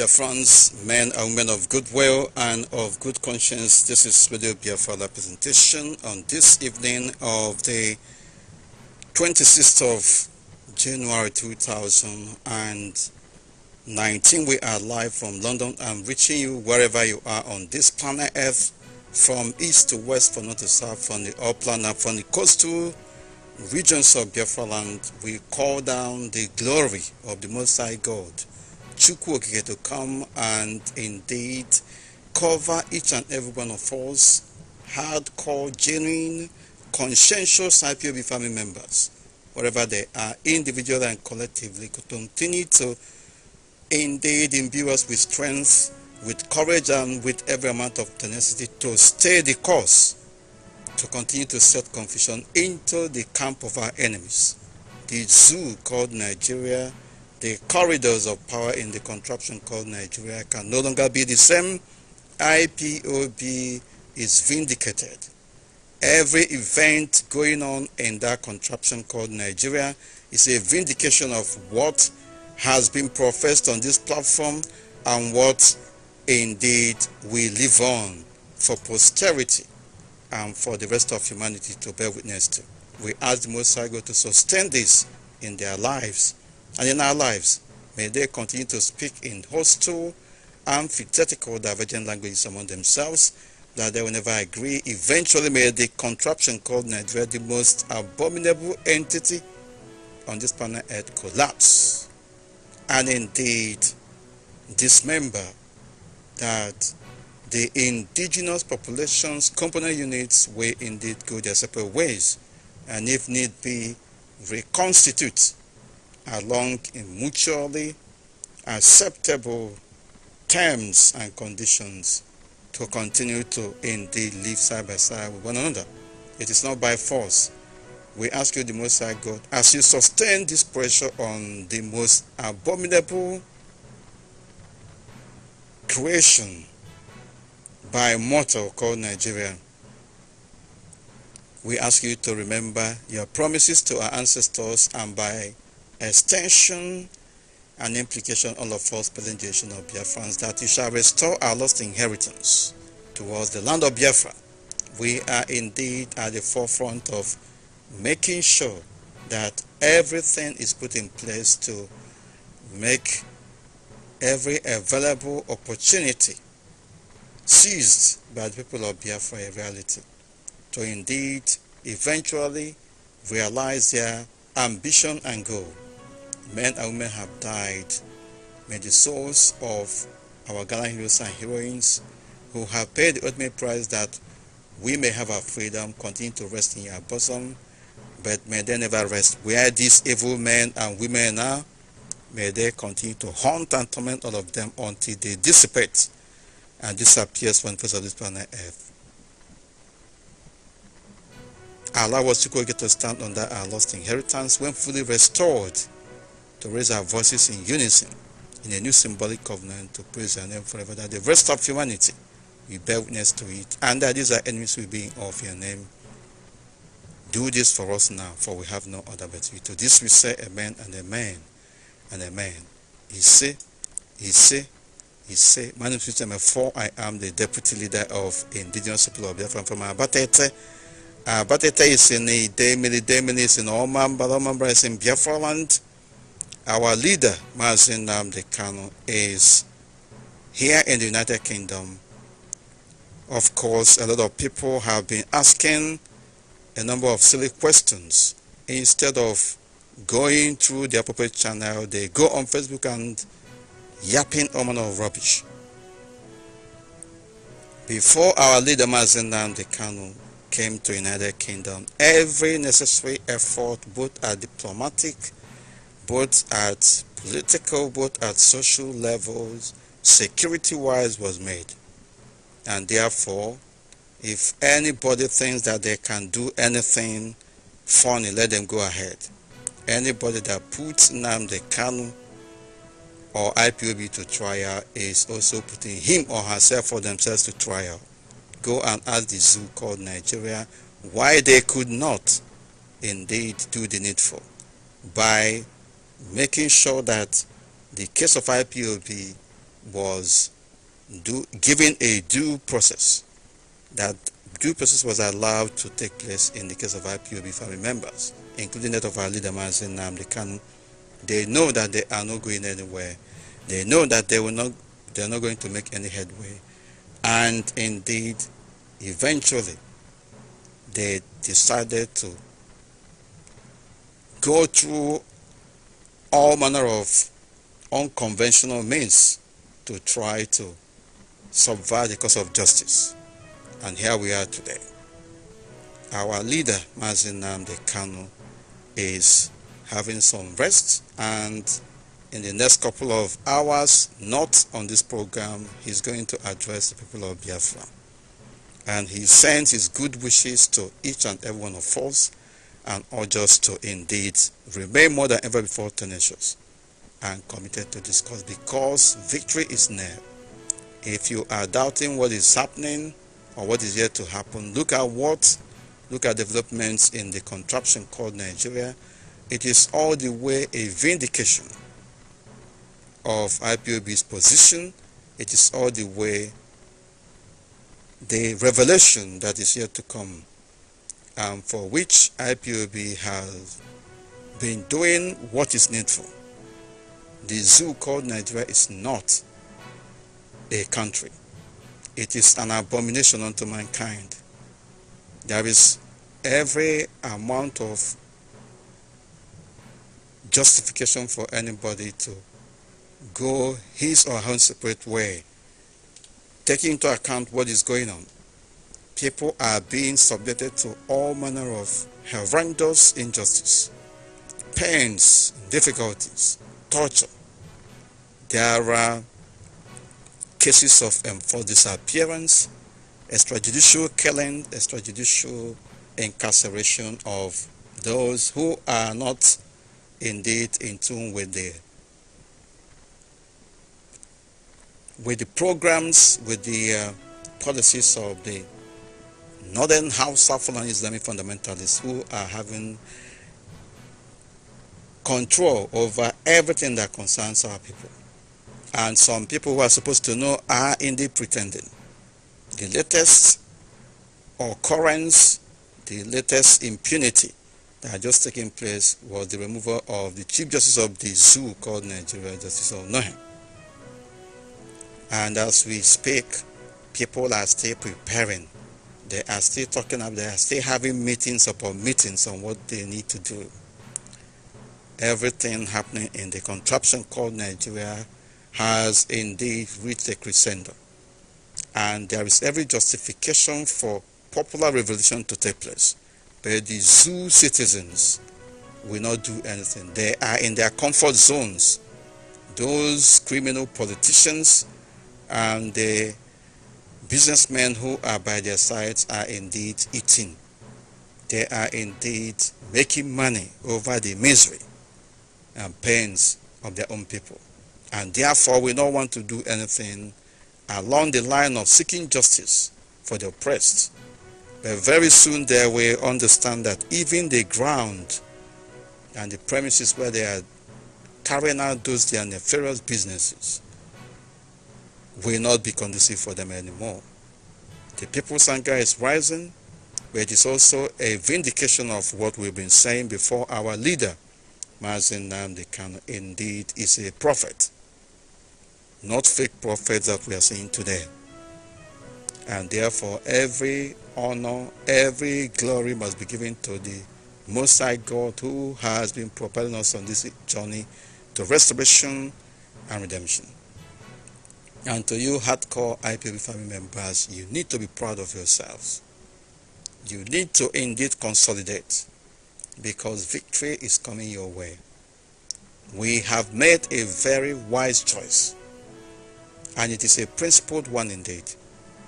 Dear friends, men and women of goodwill and of good conscience, this is Radio Biafra presentation on this evening of the 26th of January 2019. We are live from London. I'm reaching you wherever you are on this planet Earth, from east to west, from north to south, from the upland and from the coastal regions of Biafra land. We call down the glory of the Most High God Chukwokike to come and indeed cover each and every one of us, hardcore, genuine, conscientious IPOB family members, wherever they are, individually and collectively, to continue to indeed imbue us with strength, with courage, and with every amount of tenacity to stay the course, to continue to set confusion into the camp of our enemies. The zoo called Nigeria the corridors of power in the contraption called Nigeria can no longer be the same. IPOB is vindicated. Every event going on in that contraption called Nigeria is a vindication of what has been professed on this platform and what indeed we live on for posterity and for the rest of humanity to bear witness to. We ask the Most High to sustain this in their lives and in our lives. May they continue to speak in hostile, antithetical, divergent languages among themselves, that they will never agree. Eventually, may the contraption called Nigeria, the most abominable entity on this planet Earth, collapse and indeed dismember that the indigenous population's component units will indeed go their separate ways and if need be reconstitute along in mutually acceptable terms and conditions to continue to indeed live side by side with one another. It is not by force. We ask you, the Most High God, as you sustain this pressure on the most abominable creation by mortal called Nigeria, we ask you to remember your promises to our ancestors and by extension and implication all of us present generation of Biafrans that you shall restore our lost inheritance towards the land of Biafra. We are indeed at the forefront of making sure that everything is put in place to make every available opportunity seized by the people of Biafra a reality to indeed eventually realize their ambition and goal men and women have died. May the souls of our gallant heroes and heroines who have paid the ultimate price that we may have our freedom continue to rest in our bosom, but may they never rest. Where these evil men and women are, may they continue to haunt and torment all of them until they dissipate and disappears from the face of this planet Earth. Allah was to go get to stand on that our lost inheritance when fully restored to raise our voices in unison in a new symbolic covenant to praise your name forever, that the rest of humanity will bear witness to it, and that these are enemies will be in awe of your name. Do this for us now, for we have no other but you. To this we say amen and amen and amen. He say, he say, he say, my name is Mr. Mefo. I am the deputy leader of Indigenous People of Biafra from Abatete. Abatete is in the Demili, Demili is in Oman, Balomambra is in Biafra land. Our leader, Mazin Namdi Kano is here in the United Kingdom. Of course, a lot of people have been asking a number of silly questions. Instead of going through the appropriate channel, they go on Facebook and yapping all manner of rubbish. Before our leader Mazin Namdi Kano came to United Kingdom, every necessary effort, both at diplomatic both at political, both at social levels, security-wise was made. And therefore, if anybody thinks that they can do anything funny, let them go ahead. Anybody that puts the Kanu or IPOB to trial is also putting him or herself or themselves to trial. Go and ask the zoo called Nigeria why they could not indeed do the needful by making sure that the case of IPOB was given a due process, that due process was allowed to take place in the case of IPOB family members, including that of our leader, Mazin Namdekan. They know that they are not going anywhere. They know that they will not, they are not going to make any headway. And indeed, eventually, they decided to go through all manner of unconventional means to try to subvert the cause of justice. And here we are today. Our leader, Marzenam De Kano, is having some rest and in the next couple of hours, not on this program, he's going to address the people of Biafra. And he sends his good wishes to each and every one of us and urge us to indeed remain more than ever before tenacious and committed to this cause because victory is near. If you are doubting what is happening or what is yet to happen, look at what, look at developments in the contraption called Nigeria. It is all the way a vindication of IPOB's position. It is all the way the revelation that is yet to come um, for which IPOB has been doing what is needful. The zoo called Nigeria is not a country. It is an abomination unto mankind. There is every amount of justification for anybody to go his or her separate way, taking into account what is going on people are being subjected to all manner of horrendous injustice, pains, difficulties, torture. There are cases of enforced disappearance, extrajudicial killing, extrajudicial incarceration of those who are not indeed in tune with the with the programs, with the uh, policies of the northern Hausa Fulani Islamic fundamentalists who are having control over everything that concerns our people. And some people who are supposed to know are indeed pretending. The latest occurrence, the latest impunity that had just taken place was the removal of the Chief Justice of the zoo called Nigeria Justice of Nohem. And as we speak, people are still preparing they are still talking up, they are still having meetings upon meetings on what they need to do. Everything happening in the contraption called Nigeria has indeed reached a crescendo. And there is every justification for popular revolution to take place. But the zoo citizens will not do anything. They are in their comfort zones. Those criminal politicians and the businessmen who are by their sides are indeed eating. They are indeed making money over the misery and pains of their own people. And therefore, we don't want to do anything along the line of seeking justice for the oppressed. But very soon they will understand that even the ground and the premises where they are carrying out those their nefarious businesses will not be conducive for them anymore. The people's anger is rising, but it is also a vindication of what we've been saying before our leader, Mazin Namdi indeed is a prophet, not fake prophets that we are seeing today. And therefore, every honor, every glory must be given to the Most High God who has been propelling us on this journey to restoration and redemption. And to you hardcore IPB family members, you need to be proud of yourselves. You need to indeed consolidate because victory is coming your way. We have made a very wise choice and it is a principled one indeed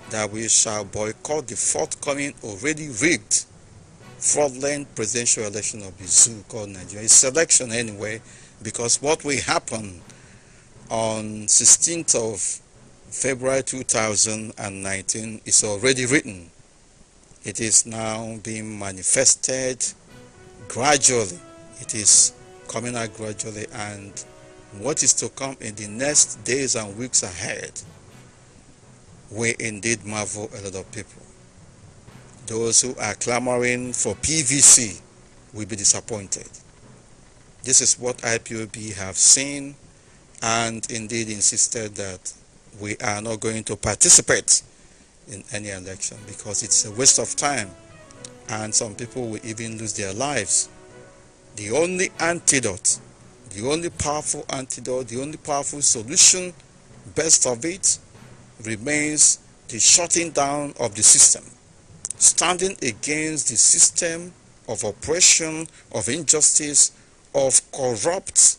that we shall boycott the forthcoming already rigged fraudulent presidential election of the zoo called Nigeria. It's election anyway because what will happen on 16th of February 2019 is already written. It is now being manifested gradually. It is coming out gradually and what is to come in the next days and weeks ahead will indeed marvel a lot of people. Those who are clamoring for PVC will be disappointed. This is what IPOB have seen and indeed insisted that we are not going to participate in any election because it's a waste of time and some people will even lose their lives. The only antidote, the only powerful antidote, the only powerful solution, best of it, remains the shutting down of the system. Standing against the system of oppression, of injustice, of corrupt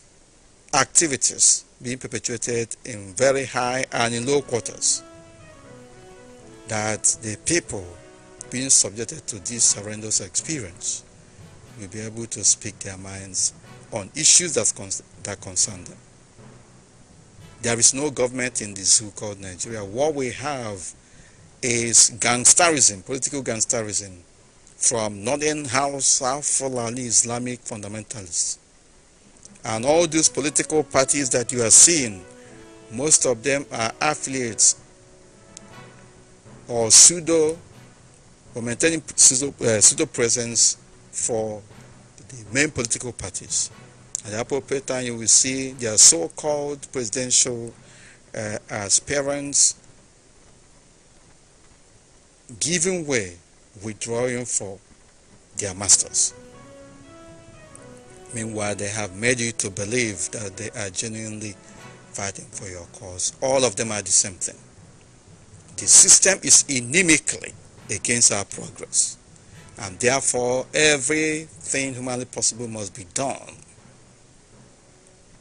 activities being perpetuated in very high and in low quarters. That the people being subjected to this horrendous experience will be able to speak their minds on issues that, con that concern them. There is no government in this so called Nigeria. What we have is gangsterism, political gangsterism, from northern house, south, Fulani Islamic fundamentalists and all these political parties that you are seeing, most of them are affiliates or pseudo or maintaining pseudo, uh, pseudo presence for the main political parties. At the appropriate time, you will see their so called presidential uh, aspirants giving way, withdrawing for their masters. Meanwhile, they have made you to believe that they are genuinely fighting for your cause. All of them are the same thing. The system is inimically against our progress. And therefore, everything humanly possible must be done.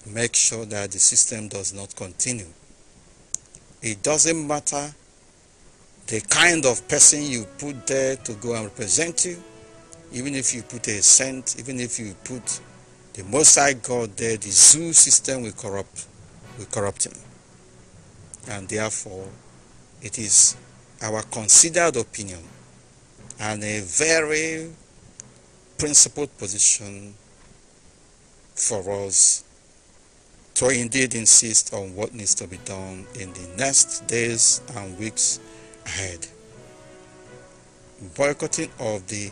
Make sure that the system does not continue. It doesn't matter the kind of person you put there to go and represent you, even if you put a cent, even if you put the Most High God there, the zoo system will corrupt, will corrupt him. And therefore, it is our considered opinion and a very principled position for us to indeed insist on what needs to be done in the next days and weeks ahead. Boycotting of the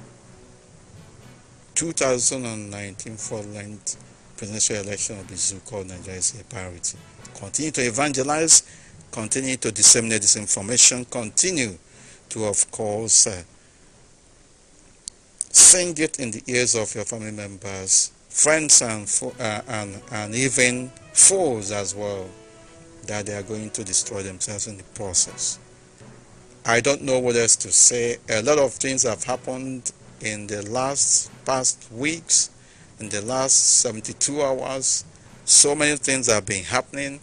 2019 length presidential election of the so-called Nigeria is a priority. Continue to evangelize, continue to disseminate this information, continue to, of course, uh, sing it in the ears of your family members, friends, and, uh, and, and even foes as well, that they are going to destroy themselves in the process. I don't know what else to say. A lot of things have happened in the last past weeks, in the last 72 hours, so many things have been happening.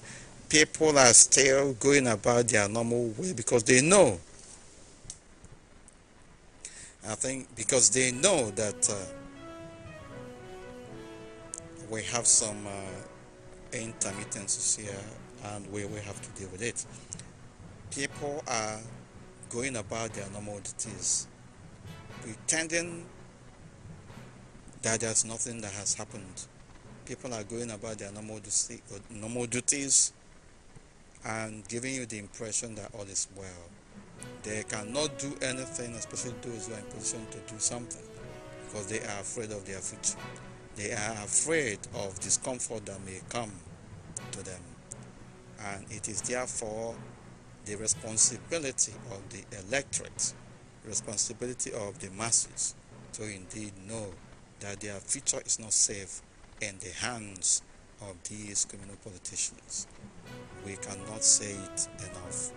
People are still going about their normal way because they know. I think because they know that uh, we have some uh, intermittencies here and we will have to deal with it. People are going about their normal duties pretending that there's nothing that has happened. People are going about their normal, duty, normal duties and giving you the impression that all is well. They cannot do anything, especially those who are in position to do something, because they are afraid of their future. They are afraid of discomfort that may come to them. And it is therefore the responsibility of the electorate responsibility of the masses to indeed know that their future is not safe in the hands of these criminal politicians. We cannot say it enough.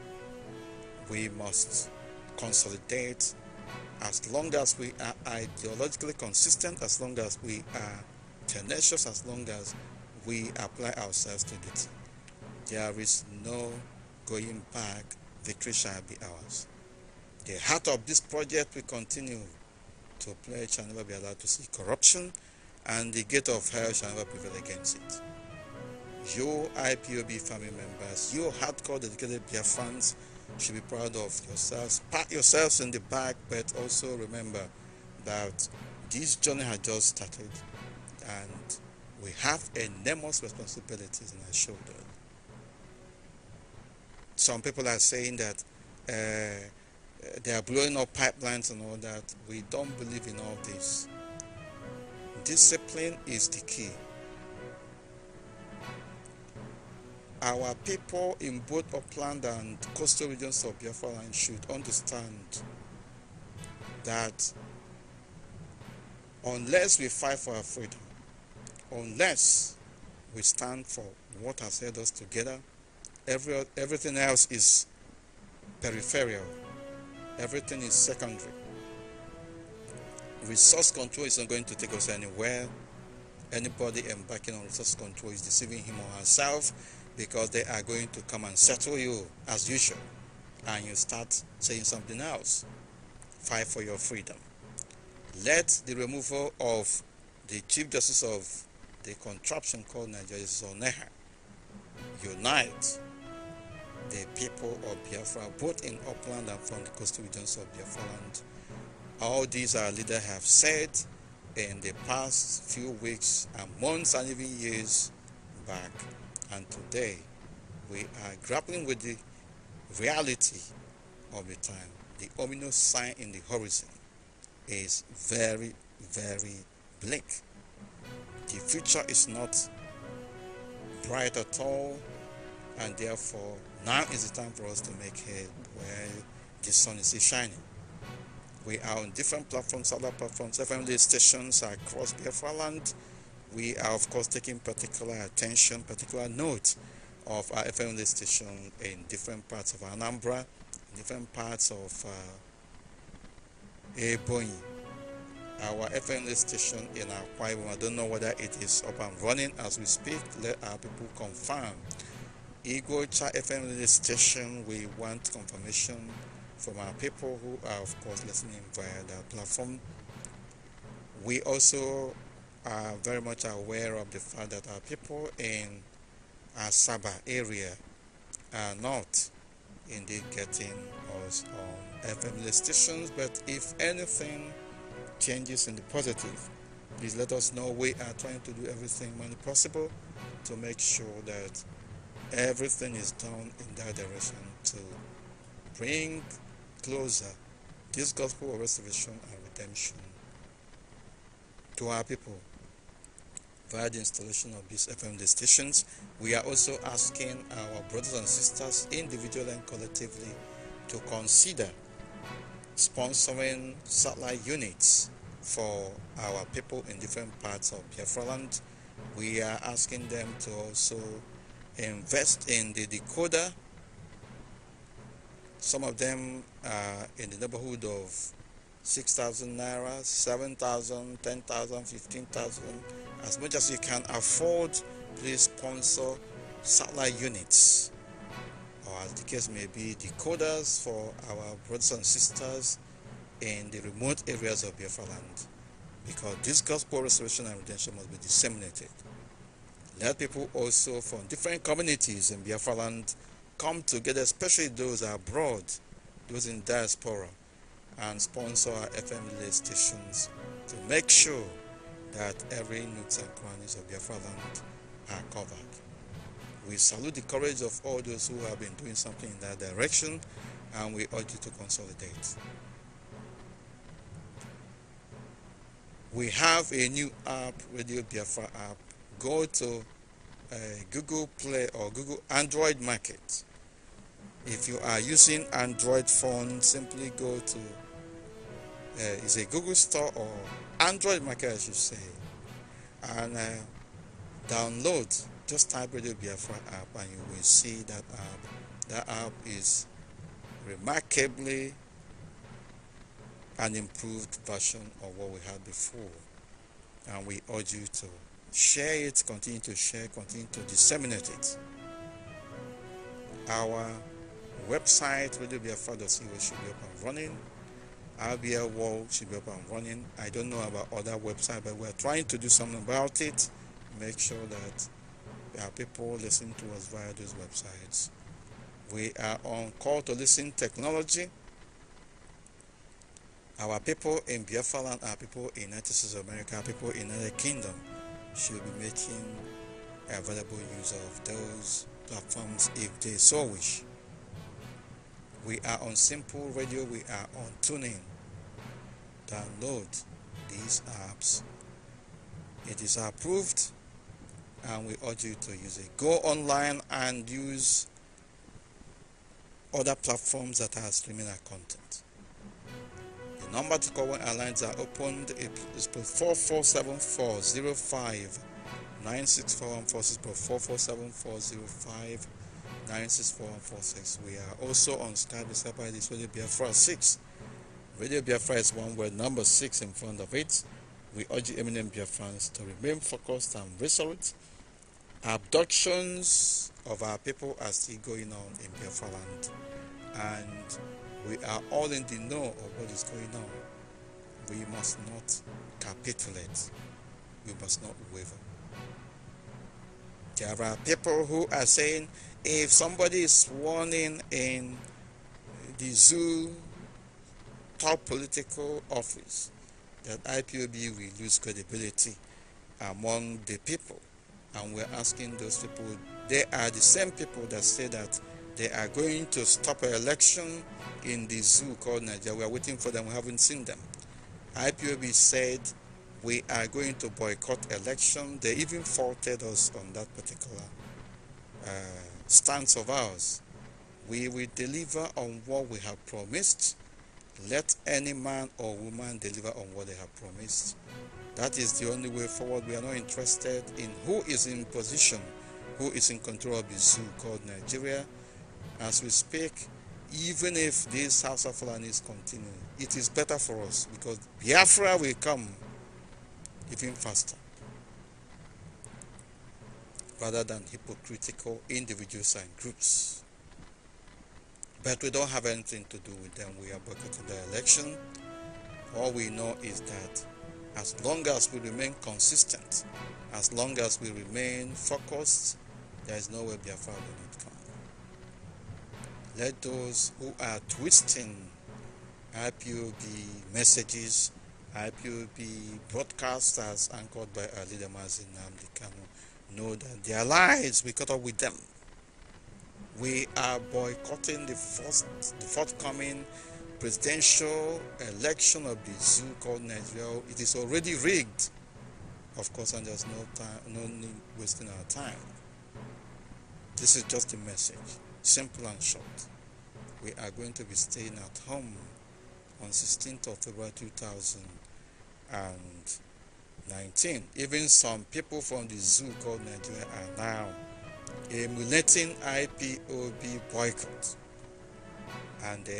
We must consolidate as long as we are ideologically consistent, as long as we are tenacious, as long as we apply ourselves to it, There is no going back. Victory shall be ours the heart of this project will continue to pledge shall never be allowed to see corruption and the gate of hell shall never prevail against it. You IPOB family members, you hardcore dedicated Bia fans should be proud of yourselves. Pat yourselves in the back, but also remember that this journey has just started and we have enormous responsibilities on our shoulders. Some people are saying that uh, they are blowing up pipelines and all that. We don't believe in all this. Discipline is the key. Our people in both upland and coastal regions of Biafra land should understand that unless we fight for our freedom, unless we stand for what has held us together, every, everything else is peripheral. Everything is secondary. Resource control is not going to take us anywhere. Anybody embarking on resource control is deceiving him or herself because they are going to come and settle you as usual. And you start saying something else. Fight for your freedom. Let the removal of the Chief Justice of the contraption called Nigeria is unite the people of Biafra, both in upland and from the coastal regions of Biafra land. All these our leaders have said in the past few weeks and months and even years back. And today, we are grappling with the reality of the time. The ominous sign in the horizon is very, very bleak. The future is not bright at all, and therefore, now is the time for us to make hay where the sun is shining. We are on different platforms, other platforms, FM stations across Biafra land. We are, of course, taking particular attention, particular note of our FM station in different parts of Anambra, different parts of uh, Ebony. Our FM station in Akwa We I don't know whether it is up and running as we speak. Let our people confirm Igocha FM station, we want confirmation from our people who are, of course, listening via the platform. We also are very much aware of the fact that our people in our Sabah area are not indeed getting us on FM stations. But if anything changes in the positive, please let us know. We are trying to do everything possible to make sure that everything is done in that direction to bring closer this gospel of restoration and redemption to our people via the installation of these FMD stations. We are also asking our brothers and sisters, individually and collectively, to consider sponsoring satellite units for our people in different parts of Biafra land. We are asking them to also invest in the decoder some of them are in the neighborhood of 6,000 naira, 7,000, 10,000, 15,000. As much as you can afford, please sponsor satellite units or, as the case may be, decoders for our brothers and sisters in the remote areas of Biafra land because this gospel restoration and redemption must be disseminated. They people also from different communities in land come together, especially those abroad, those in diaspora, and sponsor our FM stations to make sure that every nooks and crannies of land are covered. We salute the courage of all those who have been doing something in that direction and we urge you to consolidate. We have a new app, Radio Biafra app. Go to Google Play or Google Android Market. If you are using Android phone, simply go to uh, is a Google Store or Android Market, I should say, and uh, download. Just type Radio Biafra app, and you will see that app. That app is remarkably an improved version of what we had before, and we urge you to Share it, continue to share, continue to disseminate it. Our website, be a it should be up and running. RBL World should be up and running. I don't know about other websites, but we're trying to do something about it. Make sure that there are people listening to us via those websites. We are on call to listen technology. Our people in Biafra land, our people in United States of America, our people in United Kingdom should be making available use of those platforms if they so wish. We are on Simple Radio, we are on Tuning. Download these apps. It is approved and we urge you to use it. Go online and use other platforms that are streaming our content. Number to call when airlines are opened is 447 146 We are also on Skype. Skype ID is Radio Biafra 6. Radio Biafra is one word, number 6 in front of it. We urge Eminem Biafrans to remain focused and resolute. Abductions of our people are still going on in Biafra land. And we are all in the know of what is going on. We must not capitulate. We must not waver. There are people who are saying if somebody is warning in in the zoo top political office, that IPOB will lose credibility among the people. And we're asking those people, they are the same people that say that they are going to stop an election in the zoo called Nigeria. We are waiting for them. We haven't seen them. IPOB said we are going to boycott election. They even faulted us on that particular uh, stance of ours. We will deliver on what we have promised. Let any man or woman deliver on what they have promised. That is the only way forward. We are not interested in who is in position, who is in control of the zoo called Nigeria as we speak, even if this House of is continuing, it is better for us because Biafra will come even faster rather than hypocritical individuals and groups. But we don't have anything to do with them. We are boycotting the election. All we know is that as long as we remain consistent, as long as we remain focused, there is no way Biafra will let those who are twisting IPOB messages, IPOB broadcasters anchored by Ali Damazi Namdi Kanu know that they are lies. we cut off with them. We are boycotting the, first, the forthcoming presidential election of the zoo called Nigeria. It is already rigged, of course, and there's no time, no need wasting our time. This is just a message simple and short. We are going to be staying at home on 16th of February 2019. Even some people from the zoo called Nigeria are now emulating IPOB boycott. And are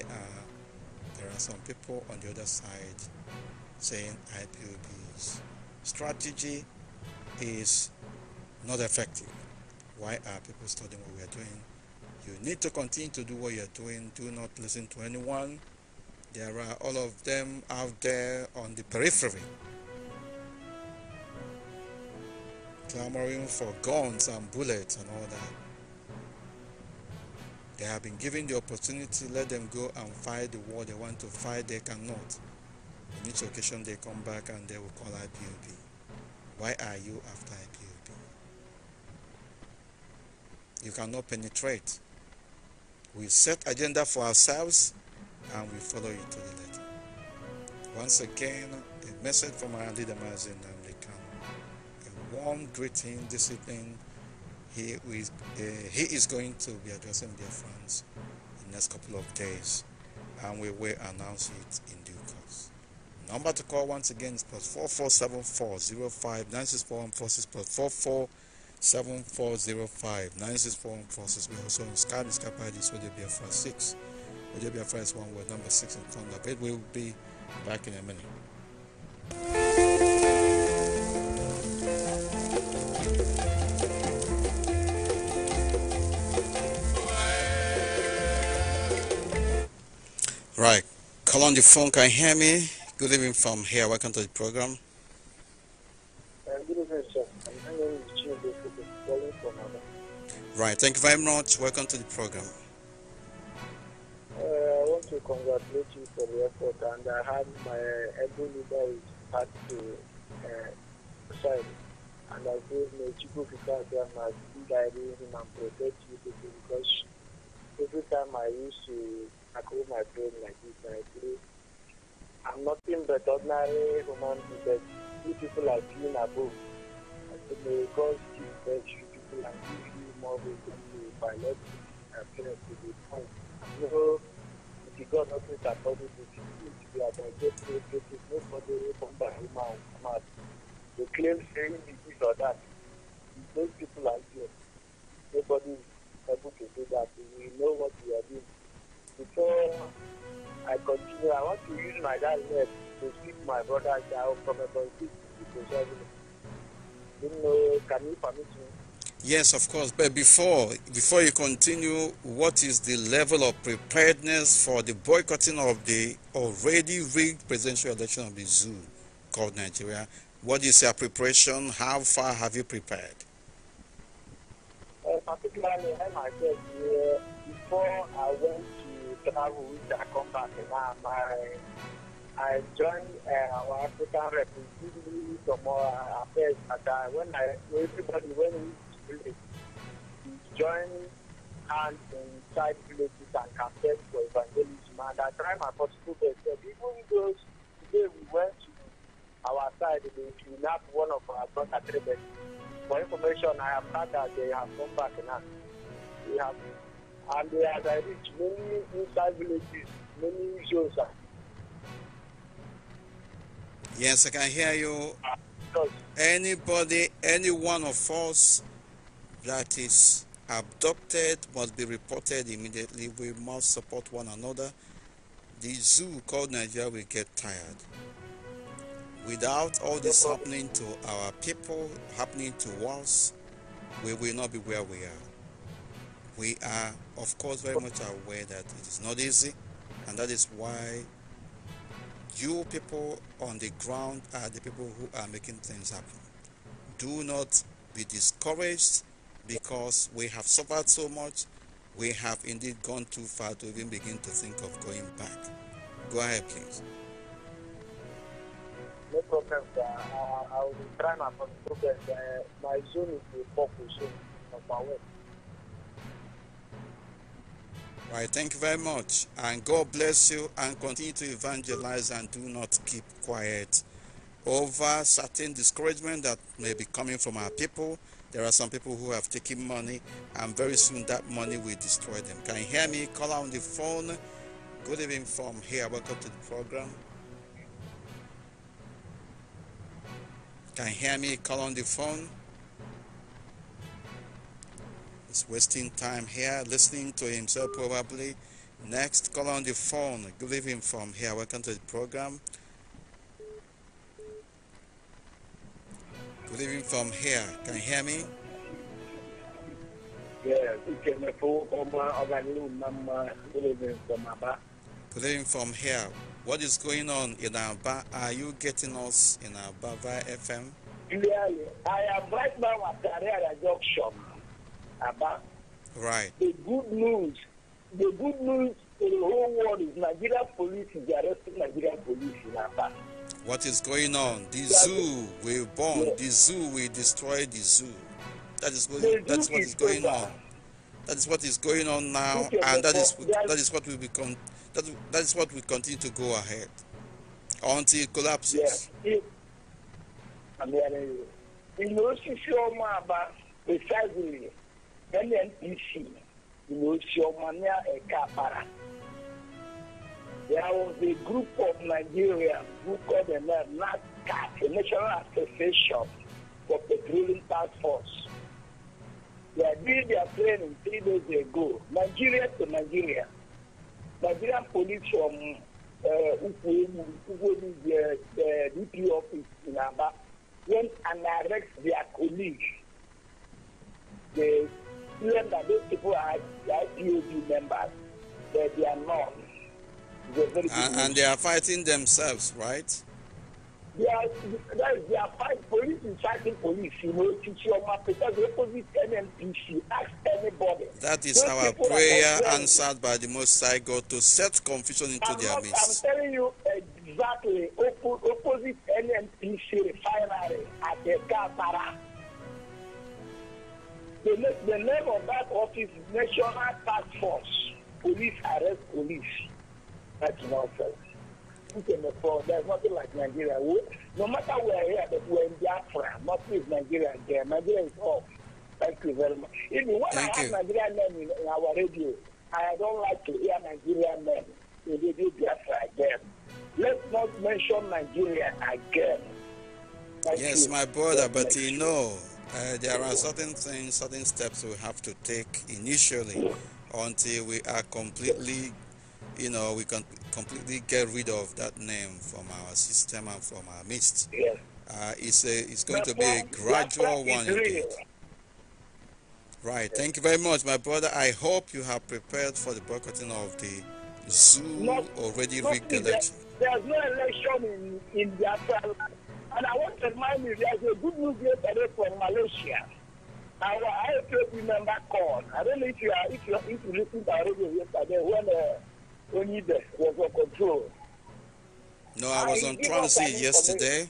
there are some people on the other side saying IPOB's strategy is not effective. Why are people studying what we are doing? You need to continue to do what you're doing. Do not listen to anyone. There are all of them out there on the periphery, clamoring for guns and bullets and all that. They have been given the opportunity, let them go and fight the war they want to fight, they cannot. On each occasion, they come back and they will call IPOB. Why are you after IPOB? You cannot penetrate. We set agenda for ourselves and we follow it to the letter. Once again, a message from our leader Mazin Namdekan. A warm greeting this evening. He is, uh, he is going to be addressing their friends in the next couple of days and we will announce it in due course. Number to call once again is plus 4474 plus six plus four four. 7405 964146. We're also on Sky Sky Pages, Ojo Biafra 6. Ojo Biafra is one word, number 6 in front of it. We'll be back in a minute. Right, call on the phone, can you hear me? Good evening from here, welcome to the program. Right, thank you very much. Welcome to the program. Uh, I want to congratulate you for the effort, and I had my uh, elbow leader is part to uh, side, and I feel my chico because I must be guiding him and protect you because every time I used to tackle my brain like this, I feel I'm nothing but ordinary human being. You people are seen above. I think because God you people like you model in biology appears to be fine. You if you got nothing that body disease, if you are digestive, oh, nobody will come by human They claim saying this or that. Those people are here. Nobody is able to do that. We know what we are doing. Before I continue, I want to use my dad's name to speak my brother's out from a politics to society. know, can you permit me? Yes, of course. But before before you continue, what is the level of preparedness for the boycotting of the already rigged presidential election of the zoo called Nigeria? What is your preparation? How far have you prepared? Uh, particularly, I myself, uh, before I went to travel, I joined uh, our African representative affairs. When I, everybody, when we joining hands inside villages and campaigns for evangelism. And I try my possible best. even those today we went to our side, they kidnapped one of our brother Trebek. For information, I have heard that they have come back now. We have, and they have reached many inside villages, many zones. Yes, I can hear you. Uh, Anybody, any one of us that is abducted must be reported immediately. We must support one another. The zoo called Nigeria will get tired. Without all this happening to our people, happening to us, we will not be where we are. We are, of course, very much aware that it is not easy, and that is why you people on the ground are the people who are making things happen. Do not be discouraged because we have suffered so much, we have indeed gone too far to even begin to think of going back. Go ahead, please. No problem, sir. Uh, I will be trying my best. Uh, my zone is the focus zone of my work. Right, thank you very much. And God bless you and continue to evangelize and do not keep quiet over certain discouragement that may be coming from our people. There are some people who have taken money and very soon that money will destroy them. Can you hear me? Call on the phone. Good evening from here. Welcome to the program. Can you hear me? Call on the phone. He's wasting time here, listening to himself probably. Next, call on the phone. Good evening from here. Welcome to the program. Living from here. Can you hear me? Yeah, good from from here. What is going on in Abba? Are you getting us in Abba via FM? Clearly, I am right now at Carrera Junction, Abba. Right. The good news, the good news in the whole world is Nigerian police is arresting Nigerian police in Abba what is going on. The zoo will burn, the zoo will destroy the zoo. That is what, that's what is going on. That is what is going on now, and that is that is what will become that that is what will continue to go ahead until it collapses. Yes there was a group of Nigerians who called themselves NASCAR, the National Association for Petroleum Task Force. They did their training three days ago, Nigeria to Nigeria. Nigerian police from uh, the, DP office in Aba, went and arrested their colleagues. They claimed that those people are IPOB members, but they are not. And, and, they are fighting themselves, right? They are, they are fighting police is fighting police. You know, your because the opposite NMPC, ask anybody. That is Those our prayer answered by the Most High God to set confusion into their midst. I'm telling you exactly opposite NMPC refinery at the Katara. The, the name of that office is National Task Force Police Arrest Police that's nonsense. There's nothing like Nigeria. We, no matter where here, but we're in Biafra. Nothing is Nigeria there. Nigeria is Thank you very much. Even when Thank I have you. Nigerian men in, in our radio, I don't like to hear Nigerian men in radio Biafra again. Let's not mention Nigeria again. Thank yes, you. my brother, but you know, uh, there are certain things, certain steps we have to take initially until we are completely you know, we can completely get rid of that name from our system and from our midst. Yeah, Uh, it's a, it's going to be a gradual one. Indeed. Right. Thank you very much, my brother. I hope you have prepared for the boycotting of the zoo not, already not rigged election. there's no election in, in the And I want to remind you, there's a good news yesterday from Malaysia. Our IPOB member called. I don't know if you, are, if you, if you listened to our radio yesterday when... Uh, was on control. No, I was on trying to say yesterday.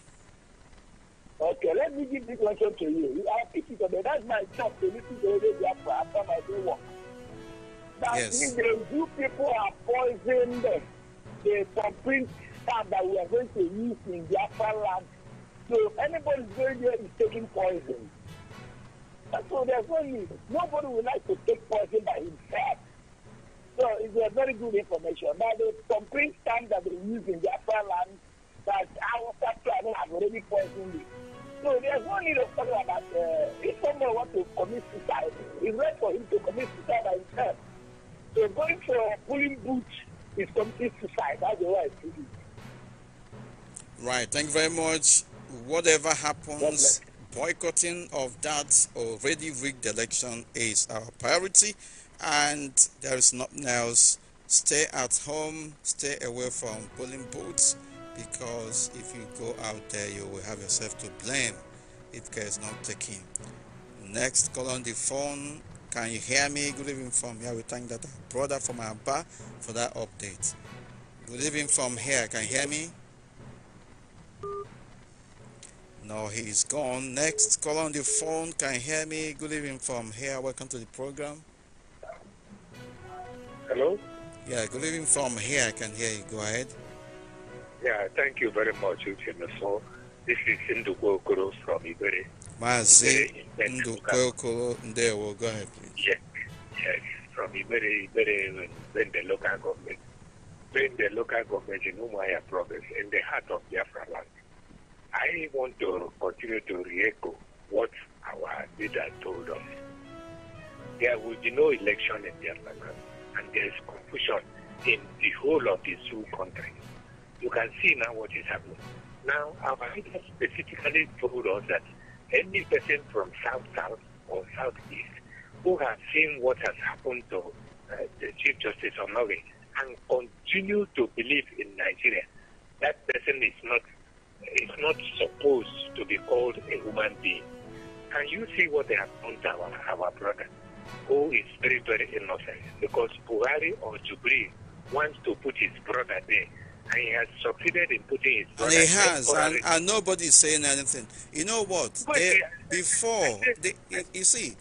Okay, let me give this question to you. I pick it up. That's my job to listen to the radio after my day work. That yes. means the you people are poisoned the thumbprint card that we are going to use in Biafra land. So anybody going there is taking poison. so there's no need. Nobody would like to take poison by himself. So it's a very good information. But the concrete sand that they use in their land that our factory have already poisoned it. So there's no need of talking about uh, if someone wants to commit suicide, it's right for him to commit suicide by himself. So going for a pulling boot is complete suicide. That's the way I see it. Right. Thank you very much. Whatever happens, boycotting of that already rigged election is our priority and there is nothing else stay at home stay away from polling booths because if you go out there you will have yourself to blame if care is not taken next call on the phone can you hear me good evening from here we thank that brother from bar for that update good evening from here can you hear me no he's gone next call on the phone can you hear me good evening from here welcome to the program Hello? Yeah, good evening from here. I can hear you. Go ahead. Yeah, thank you very much, Uchenefo. This is Ndukokoro from Ibere. Mazi Ndukokoro Ndewo. Go ahead, please. Yes, yes. From Ibere, Ibere, when the local government, when the local government in Umuahia province, in the heart of Biafra land. I want to continue to re-echo what our leader told us. There will be no election in Biafra land and there's confusion in the whole of the two countries. You can see now what is happening. Now, our leaders specifically told us that any person from South South or Southeast who has seen what has happened to uh, the Chief Justice of Norway and continue to believe in Nigeria, that person is not is not supposed to be called a human being. Can you see what they have done to our, our brother? who is very, very innocent because Buhari or Jubri wants to put his brother there. And he has succeeded in putting his brother he has, and, and nobody is saying anything. You know what? They, before, they, you see,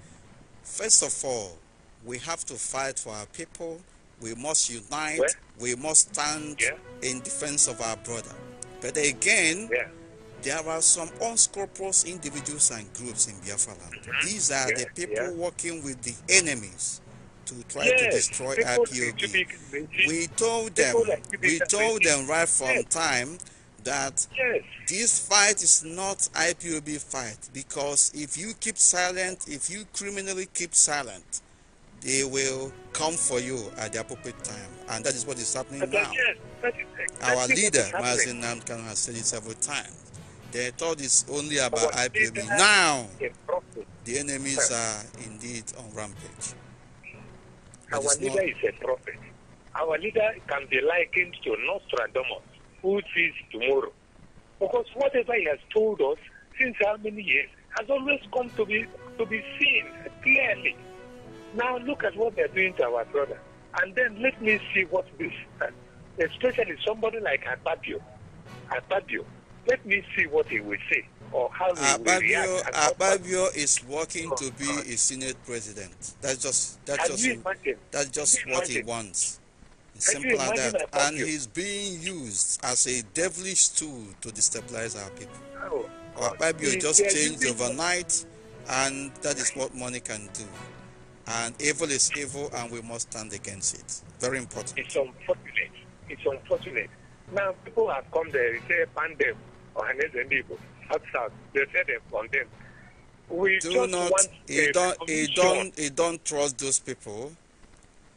first of all, we have to fight for our people. We must unite. we must stand yeah. in defense of our brother. But again, yeah there are some unscrupulous individuals and groups in Biafra land. Mm-hmm. These are the people working with the enemies to try yes, to destroy IPOB. We told them, we told them right from yes. time that yes. this fight is not IPOB fight because if you keep silent, if you criminally keep silent, they will come for you at the appropriate time. And that is what is happening uh, now. Our leader, Mazin Nankan, has said it several times. They thought it's only about IPOB. Now, the enemies are indeed on rampage. But Our leader not... is a prophet. Our leader can be likened to Nostradamus, who sees tomorrow. Because whatever he has told us since how many years has always come to be to be seen clearly. Now look at what they're doing to our brother. And then let me see what this, especially somebody like Ababio. Ababio, let me see what he will say or how he Ababio, will react. Ababio is working oh, to be God. a Senate president. That's just that's Can just that's just what he wants. Simple as that. And you? he's being used as a devilish tool to destabilize our people. Oh, Ababio just changed overnight, and that is what money can do. And evil is evil, and we must stand against it. Very important. It's unfortunate. It's unfortunate. Now, people have come there It's say, ban them. Ohanes and Igbo outside. They We do not, he don't, he don't, he trust those people.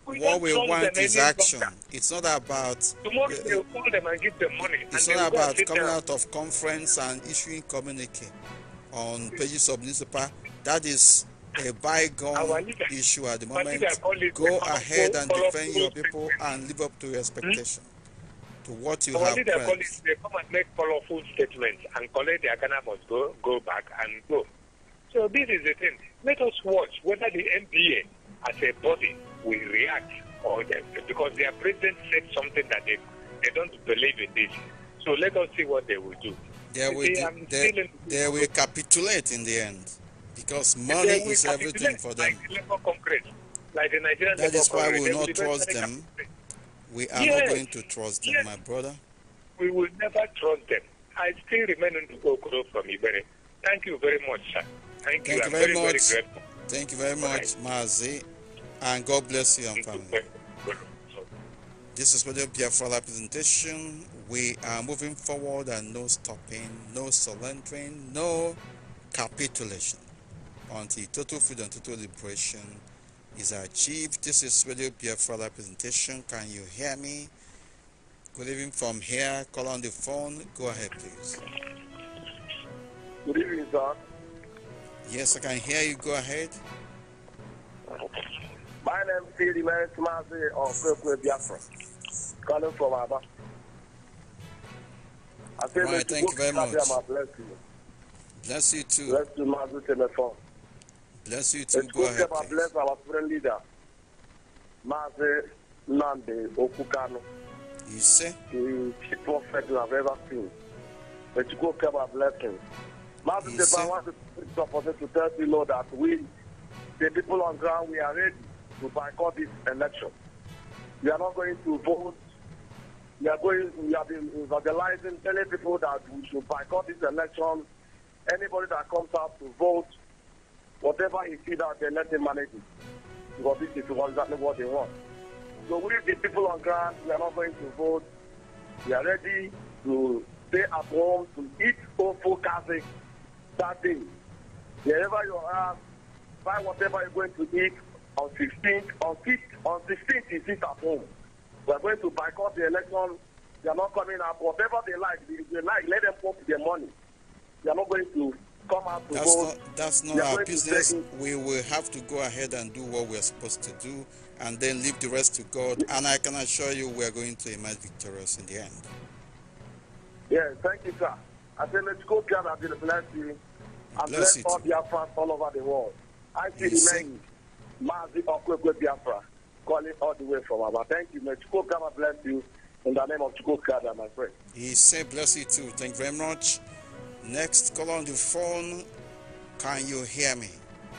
We what we want is action. Doctor. It's not about. Tomorrow uh, eh, will call them and give them money. It's not about coming out of conference and issuing communique on pages of newspaper. That is a bygone issue at the moment. Go ahead and defend your people and live up to your expectations to what you have. Only they, it, they come and make colorful statements and collect their Ghana must go, go back and go. So this is the thing. Let us watch whether the NBA as a body will react or not, because their president said something that they, they don't believe in this. So let us see what they will do. They will, see, do, they, they will capitulate in the end because money is everything for them. Like the Nigerian. that is why we will not trust them. Capitulate. We are yes. not going to trust them, yes. my brother. We will never trust them. I still remain in Okoro from Ibere. Thank you very much, sir. Thank, Thank you. you very, very, much. Very Thank you very much, Mazi. And God bless you and family. This is Radio Biafra presentation. We are moving forward and no stopping, no surrendering, no capitulation until total freedom, total liberation is achieved. This is Radio Biafra presentation. Can you hear me? Good evening from here. Call on the phone. Go ahead, please. Good evening, sir. Yes, I can hear you. Go ahead. My name is Phil Meritimazi of Kwekwe Biafra, calling from Abba. I say, right, thank you very much. Bless you. Bless you too. Bless you, Mazu Telephone. Bless you too. Go ahead. Please. Bless our friend leader, Maze Nande Okukano. You say? The prophet you have ever seen. But you go keep our blessings. Master Deba wants the opportunity to tell you, Lord, that we, the people on ground, we are ready to boycott this election. We are not going to vote. We are going. We have been evangelizing, telling people that we should boycott this election. Anybody that comes out to vote Whatever he see out there, let them manage it. Because this is exactly what they want. So we, the people on ground, we are not going to vote. We are ready to stay at home, to eat awful cafe. that day. Wherever you are, buy whatever you're going to eat on 16th. On 5th, on 16th, you sit at home. We are going to boycott the election. They are not coming up. Whatever they like, they, they like, let them pump their money. They are not going to come out to that's vote. Not, that's not our business. We will have to go ahead and do what we're supposed to do and then leave the rest to God. And I can assure you we're going to emerge victorious in the end. Yeah, thank you, sir. I say let's go gather to the i and bless, bless all Biafrans all over the world. I see you the name, Mazi Okwekwe Biafra, calling all the way from Abba. Thank you, God Chukwu bless you in the name of Chukwu my friend. He said bless you too. Thank you very much. Next, call on the phone. Can you hear me?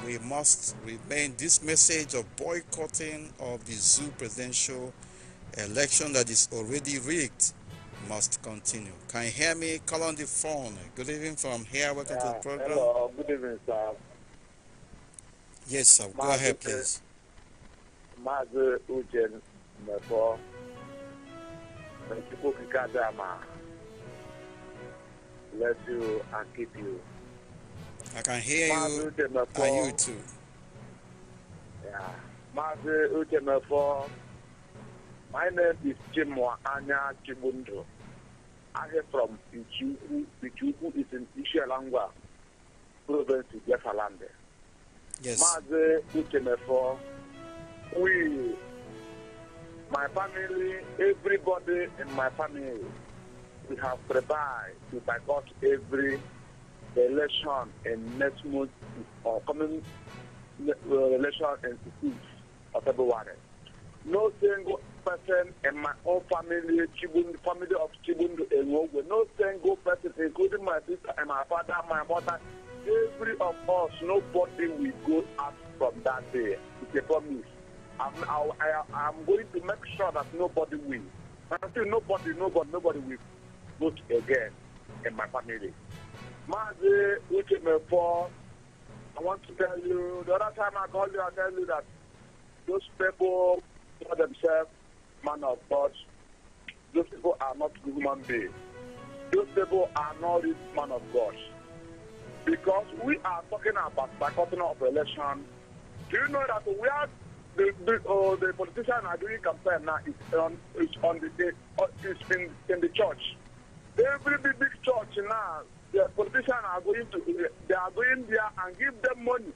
We must remain this message of boycotting of the zoo presidential election that is already rigged must continue. Can you hear me? Call on the phone. Good evening from here. Welcome yeah, to the program. Hello. Good evening, sir. Yes, sir. Go ahead, please. Mazi Ujen Mebo. Thank you bless you and keep you. I can hear you and you too. Yeah. Mazi Uchemefo, my name is Chimwa Anya Chibundo. I am from Ichuku. Ichuku is in Ishialangwa, province of Jeffalande. Yes. Mazi Uchemefo, we, my family, everybody in my family, we have prepared to boycott every election in next month uh, or coming uh, election in 16th of February. No single person in my own family, Chibundu, family of Chibundu Enogwe, no single person, including my sister and my father, my mother, every of us, nobody will go out from that day. It's a promise. I'm, I, I, I'm going to make sure that nobody will. Until nobody, nobody, nobody will vote again in my family. Mazi Uchimefo, I want to tell you, the other time I called you, I tell you that those people call themselves man of God. Those people are not human beings. Those people are not the man of God. Because we are talking about boycotting of election. Do you know that we are the the, uh, the politician are doing campaign now is on is on the, the uh, is in in the church. Every big, big church now, the politicians are going to, they are going there and give them money.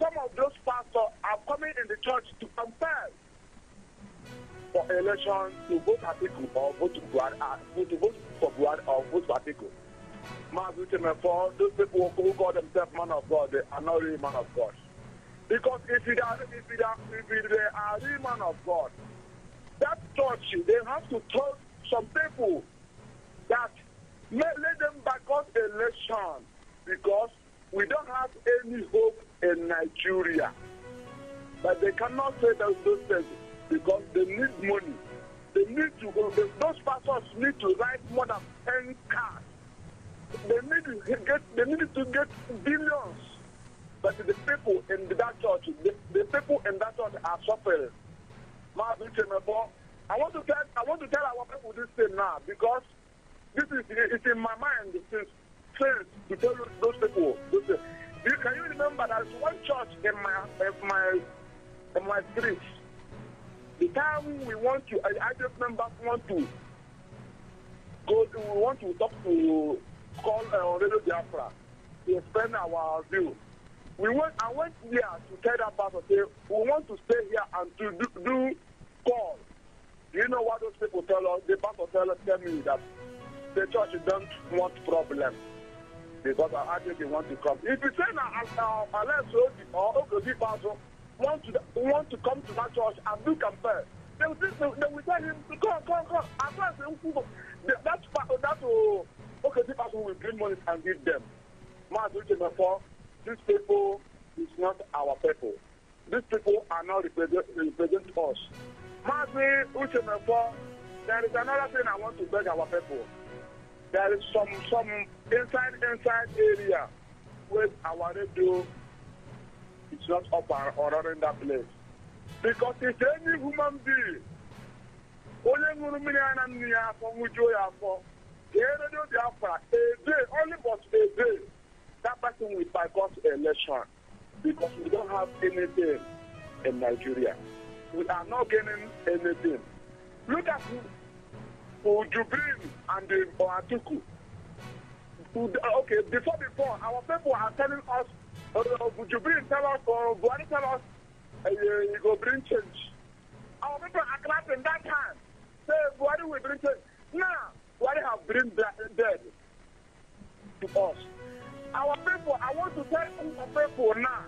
Some of those pastors are coming in the church to campaign for election to vote Atiku or vote to uh, vote to vote for Buhari or vote for Atiku. my Timefo, those people who call themselves man of God, they are not really man of God. Because if they are, if they are, if they are really man of God, that church, they have to tell some people that let them back on election because we don't have any hope in Nigeria. But they cannot say those things because they need money. They need to, those pastors need to write more than 10 cars. They need to get, they need to get billions. But the people in that church, the, the people in that church are suffering. I want to tell, I want to tell our people this thing now because this is it's in my mind since since to tell those people. Uh, you can you remember there's one church in my in my in my street. The time we want to, I, I just remember want to go. To, we want to talk to call uh, Radio Biafra to explain our view. We went. I went there to tell that pastor, say we want to stay here and to do, do call. Do you know what those people tell us? The pastor tell us, tell me that The church don't want problem because I actually they want to come. If you say now, unless Obi or Okobi Basso want to want to come to that church and do campaign, they will say, they will tell him to come, come, come. As long as they that that uh, Okobi will bring money and give them. Mas therefore, these people is not our people. These people are not represent, represent us. Mas Uchemefo, there is another thing I want to beg our people there is some some inside inside area where our radio is not up and running that place because if any human being only ṅụrụ mmiri a na nnu ya afọ ṅụjuo ya afọ kee redio biafra a day only but a day that person will boycott election because we don't have anything in nigeria we are not gaining anything look at Ujubrin and uh, Oatuku. Okay, before before, our people are telling us, you uh, bring tell us, or uh, tell us, you uh, go bring change. Our people are clapping that time. Say, Buhari will bring change. Now, Buhari have bring dead to us. Our people, I want to tell our people now,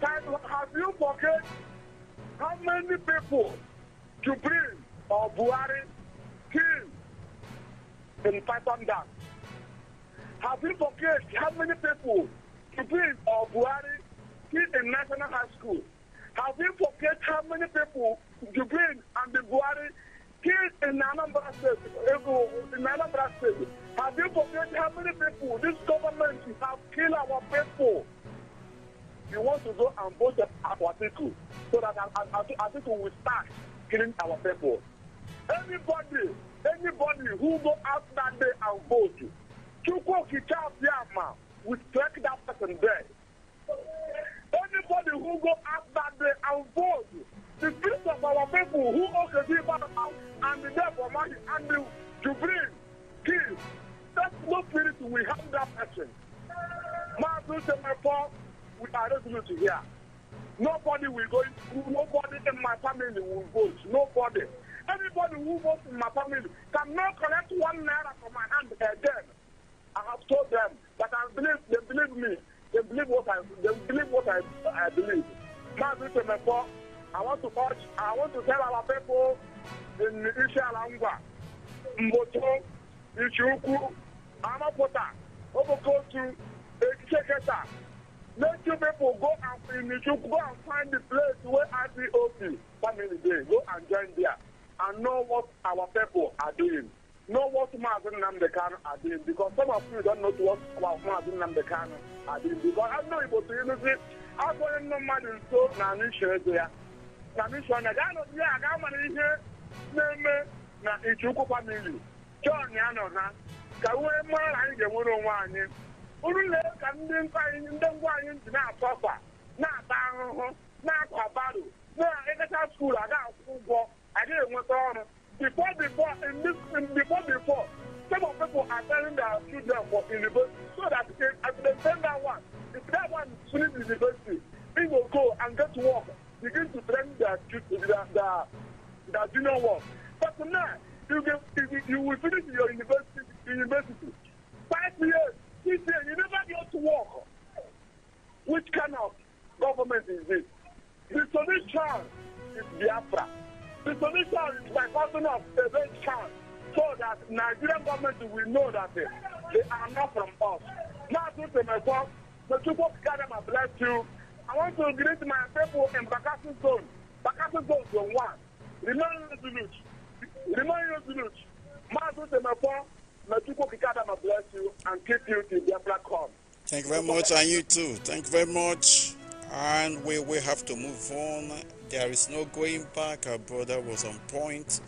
that have you forget how many people bring or buari? in Python Have you forget how many people Kibin or Buhari killed in National High School? Have you forget how many people Kibin and the Buhari killed in Anambra State? In Anambra State? Have you forget how many people this government have killed our people? You want to go and vote our people so that our people will start killing our people. Anybody, anybody who go out that day and vote, Chukwuki Chafiama will strike that person dead. Anybody who go out that day and vote, the peace of our people who also give us out and the death of money and the Jubril, kill. That no spirit we have that person. Man, My say my father, we are resolute here. Nobody will go, nobody in my family will vote. Nobody. Everybody who votes in my family can not collect one naira from my hand again. Eh, I have told them that I believe they believe me. They believe what I they believe what I, I believe. Now this is I want to urge I want to tell our people in Ishalangwa, Mboto, Ichuku, Amapota, Obokotu, Ekeketa. Let you people go and in Ichuku, go and find the place where IPOP family day. Go and join there. and know what our people are doing. Know what Mazin Namdekan are doing because some of you don't know what our Mazin Namdekan are doing. Because I know Igbo to you, agụghị ndị mmadụ nso na anụisho ego ya na anụisho na gaa n'otu ya aga mara ihe na-eme na ichukwu famili John ya nọ ha ka wee mara na anyị ga-enwere onwe anyị uru na ka ndị anyị ndị ngwa anyị ji na-atọfa na-ata ahụhụ na-akwa baro na-ekecha skuulu aga akwụkwọ ụgwọ before before in this in before before some of people are telling their children for university so that if at the same that one if that one finish university they will go and get work begin to train their children their their, their junior work but now you get you, you will finish your university university five years six years you never get to work which kind of government is this the solution is biafra. The solution is by passing of the rate card so that Nigerian government will know that they, eh, they are not from us. Now, to myself, the people gather my bless you. I want to greet my people in Bakassi Zone. Bakassi Zone Zone 1. Remain resolute. Remain resolute. Mazu Temepo, may people gather my bless you and keep you till their black come. Thank you very much, and you too. Thank you very much. And we will have to move on. There is no going back. Our brother was on point,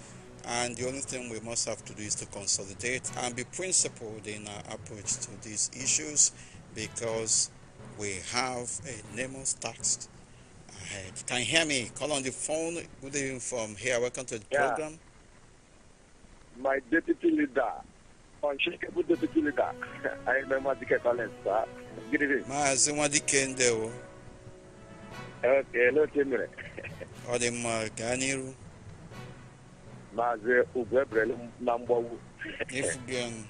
and the only thing we must have to do is to consolidate and be principled in our approach to these issues because we have a enormous tax ahead. Can you hear me? Call on the phone. Good evening from here. Welcome to the yeah. program. My deputy leader, unshakable deputy leader, I remember the Collins, sir. Good evening. Ma, I see Okay, no Timmy n'iru Maazị na mgbawu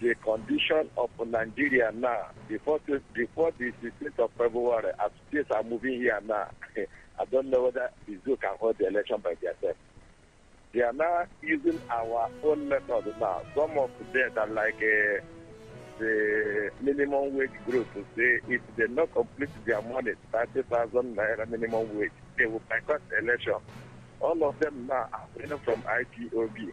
the condition of Nigeria now before the, before the 16th of February as states are moving here now I don't know whether the zoo can hold the election by themselves they are now using our own method now some of them are like uh, the minimum wage group to say if they not complete their money, 30,000 naira minimum wage, they will boycott the election. All of them now are winning from IPOB.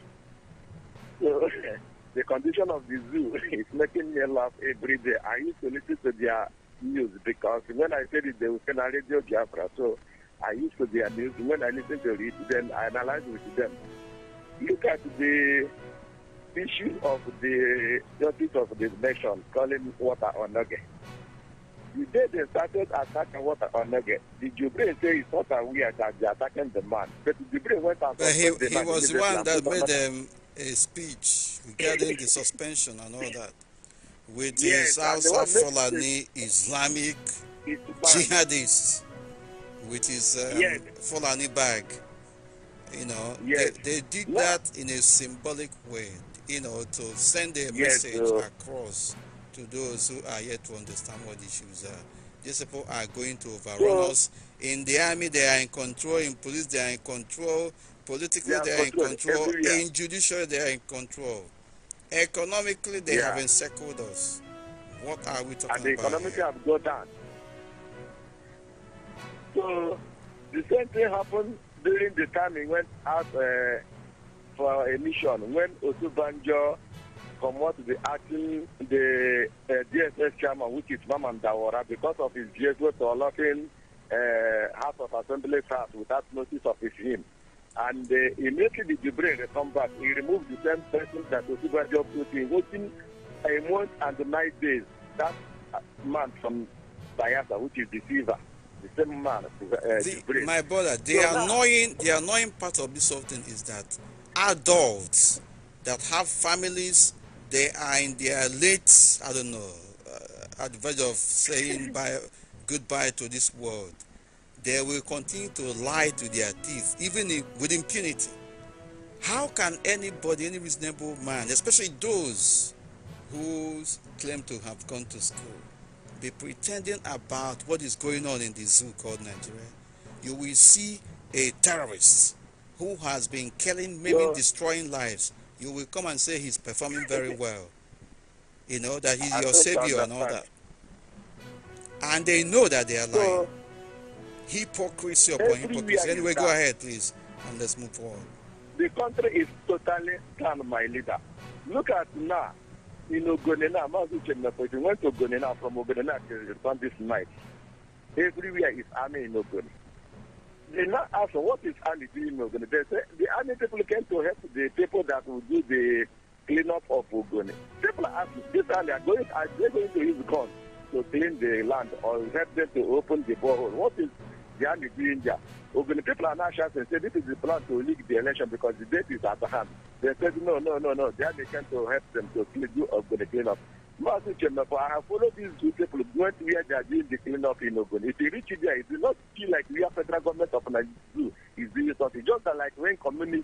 So the condition of the zoo is making me laugh every day. I used to listen to their news because when I said it, they would a Radio Biafra. So I used to their news. When I listen to it, then I analyze with them. Look at the issue of the justice of the nation calling water on Nugget. The day they started attacking water on Nugget, the Jubre say it's not aware that they're attacking the man. But the Jubre went out. But he, he was the one that made them a speech regarding the suspension and all that with yes, his House of Fulani Islamic jihadists with his um, yes. Fulani bag. You know, yes. they, they did no. that in a symbolic way you know, to send a yes, message across to those who are yet to understand what issues are. These people are going to overrun so, us. In the army, they are in control. In police, they are in control. Politically, they are, they are control in control. In judiciary, they are in control. Economically, they yeah. have encircled us. What are we talking and the about? Economically, have got down. So, the same thing happened during the time he went out. Uh, for a mission when Otubanjo come to the acting the uh, DSS chairman, which is Maman Dawara, because of his vehicle to locking uh, House of Assembly staff without notice of his him. And uh, immediately the Jibril come back, he removed the same person that Otubanjo put in, within a month and nine days. That uh, man from Bayasa, which is Deceiver, The same man, uh, the, My brother, the so annoying, now, the annoying part of this whole thing is that adults that have families, they are in their late, I don't know, uh, verge of saying bye, goodbye to this world. They will continue to lie to their teeth, even if, with impunity. How can anybody, any reasonable man, especially those who claim to have gone to school, be pretending about what is going on in the zoo called Nigeria? You will see a terrorist who has been killing, maybe destroying lives, you will come and say he's performing very well. You know, that he's I your savior and all that. And they know that they are lying. So, hypocrisy upon hypocrisy. Anyway, go ahead, please, and let's move forward. The country is totally planned, my leader. Look at now. You know, Gonena, Mazu Chemnapoji went to Gonena from Ogonena to respond this night. Everywhere is army in Ogonena. They now ask what is Ali doing in Ogoni. They say the army people came to help the people that will do the cleanup of Ogoni. People ask, asking, this Ali are going are they going to use guns to clean the land or help them to open the borehole? What is the army doing there? Ogoni people are now shouting, say this is the plan to leak the election because the date is at hand. They said no, no, no, no. The army came to help them to do Ogoni cleanup. Mazi Kemefa, I have followed these good people going where they are doing the cleanup in Ogun. If you reach there, it will not feel like we are federal government of Nigeria is doing something. Just like when community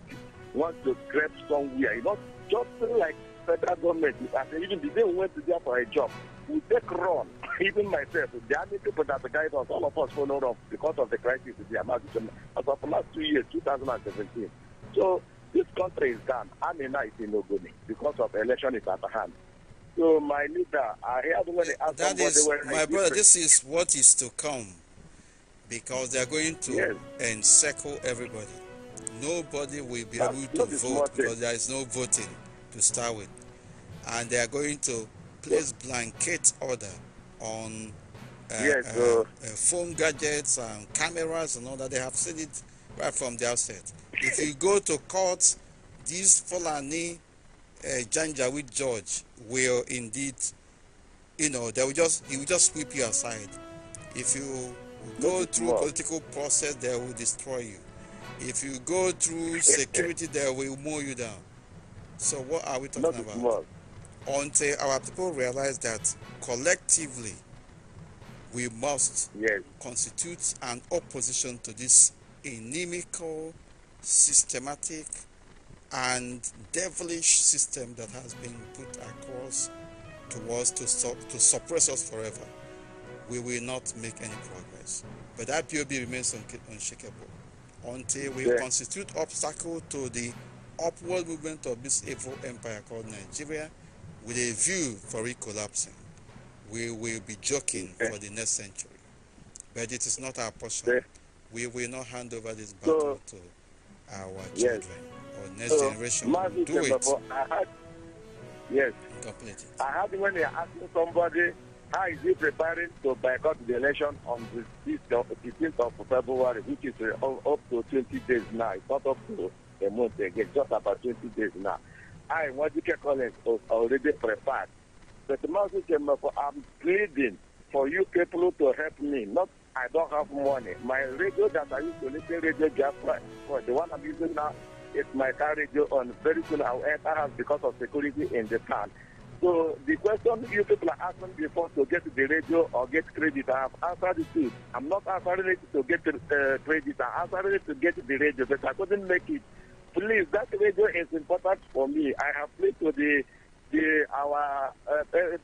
wants to grab somewhere, it's not just like federal government. I say even the day we went to there for a job, we take run. Even myself, are many people that guide us, all of us followed up because of the crisis in the Amazon as of last two years, 2017. So this country is done. Amina is in Ogoni because of election is at hand. So, my leader, I heard when they asked that is, My brother, this is what is to come because they are going to yes. encircle everybody. Nobody will be That's able to vote because there is no voting to start with. And they are going to place yes. blanket order on uh, yes, uh, uh, phone gadgets and cameras and all that. They have said it right from the outset. If you go to court, these Fulani uh, Janjaweed George will indeed, you know, they will just he will just sweep you aside. If you go through political process, they will destroy you. If you go through security, they will mow you down. So what are we talking Not about? Small. Until our people realize that collectively we must yes. constitute an opposition to this inimical, systematic, and devilish system that has been put across to us to, to suppress us forever, we will not make any progress. But P.O.B. remains un- unshakable until we yeah. constitute obstacle to the upward movement of this evil empire called Nigeria with a view for it collapsing. We will be joking yeah. for the next century. But it is not our portion. Yeah. We will not hand over this battle so, to our children. Yes next so, generation. Do December, Had, yes. Complete it. I had when they asked somebody how is he preparing to boycott the election on the 15th of, February, which is uh, up to 20 days now. It's not up to a month again, just about 20 days now. I, Wajike Collins, was already prepared. But Mazi Chemefo, I'm pleading for you people to help me. Not, I don't have money. My radio that I used to listen, Radio Jaffa, the one I'm using now, if my carriage on very soon, However, because of security in the town. So the question you people are asking before to get the radio or get credit, I have answered it too. I'm not answering it to get uh, credit, I'm answering it to get the radio, but I couldn't make it. Please, that radio is important for me. I have played to the the our uh,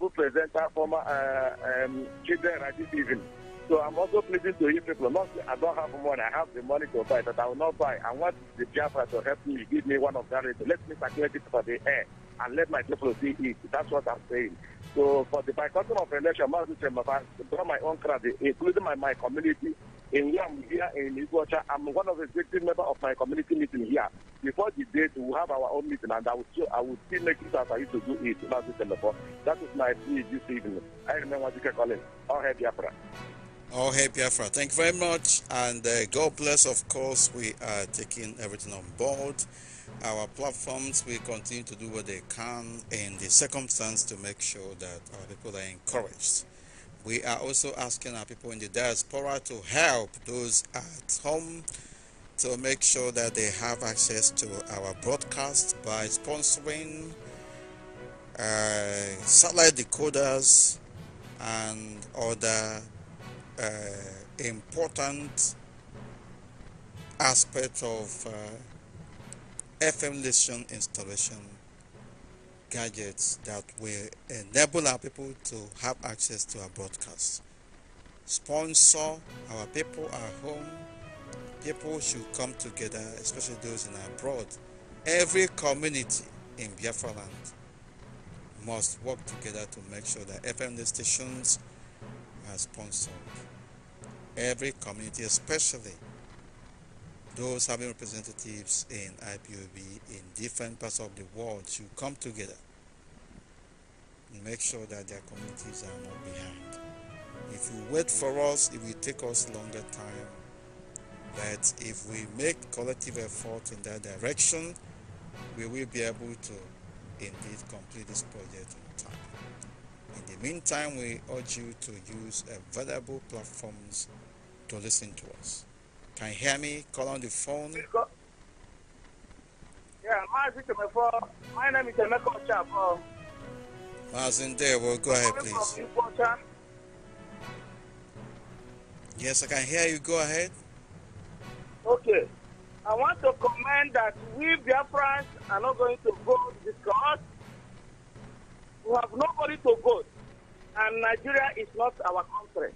presenter, uh, former uh, um, children at this evening. So I'm also pleading to you people, not I don't have money, I have the money to buy, but I will not buy. I want the Jaffa to help me, give me one of that. Let me circulate it for the air and let my people see it. That's what I'm saying. So for the boycotting of election, I draw my own credit, including my, my community. In here, I'm here in Iguacha, I'm one of the executive members of my community meeting here. Before the date, we have our own meeting, and I will still, I will still make it as I used to do it last December. That is my plea this evening. I remember what you can call it. All Biafra. All hey Biafra, thank you very much, and uh, God bless. Of course, we are taking everything on board. Our platforms will continue to do what they can in the circumstance to make sure that our people are encouraged. We are also asking our people in the diaspora to help those at home to make sure that they have access to our broadcast by sponsoring uh, satellite decoders and other uh, important aspect of uh, FM listening installation gadgets that will enable our people to have access to our broadcast. Sponsor our people at home. People should come together, especially those in abroad. Every community in Biafra land must work together to make sure that FM stations has sponsored. Every community, especially those having representatives in IPOB in different parts of the world, should come together and make sure that their communities are not behind. If you wait for us, it will take us longer time. But if we make collective effort in that direction, we will be able to indeed complete this project in the meantime, we urge you to use available uh, platforms to listen to us. Can you hear me? Call on the phone. Yeah, my name is you. Chapo. there, well, go ahead, please. Yes, I can hear you. Go ahead. Okay. I want to comment that we Biafrans are not going to vote because we have nobody to go. And Nigeria is not our country.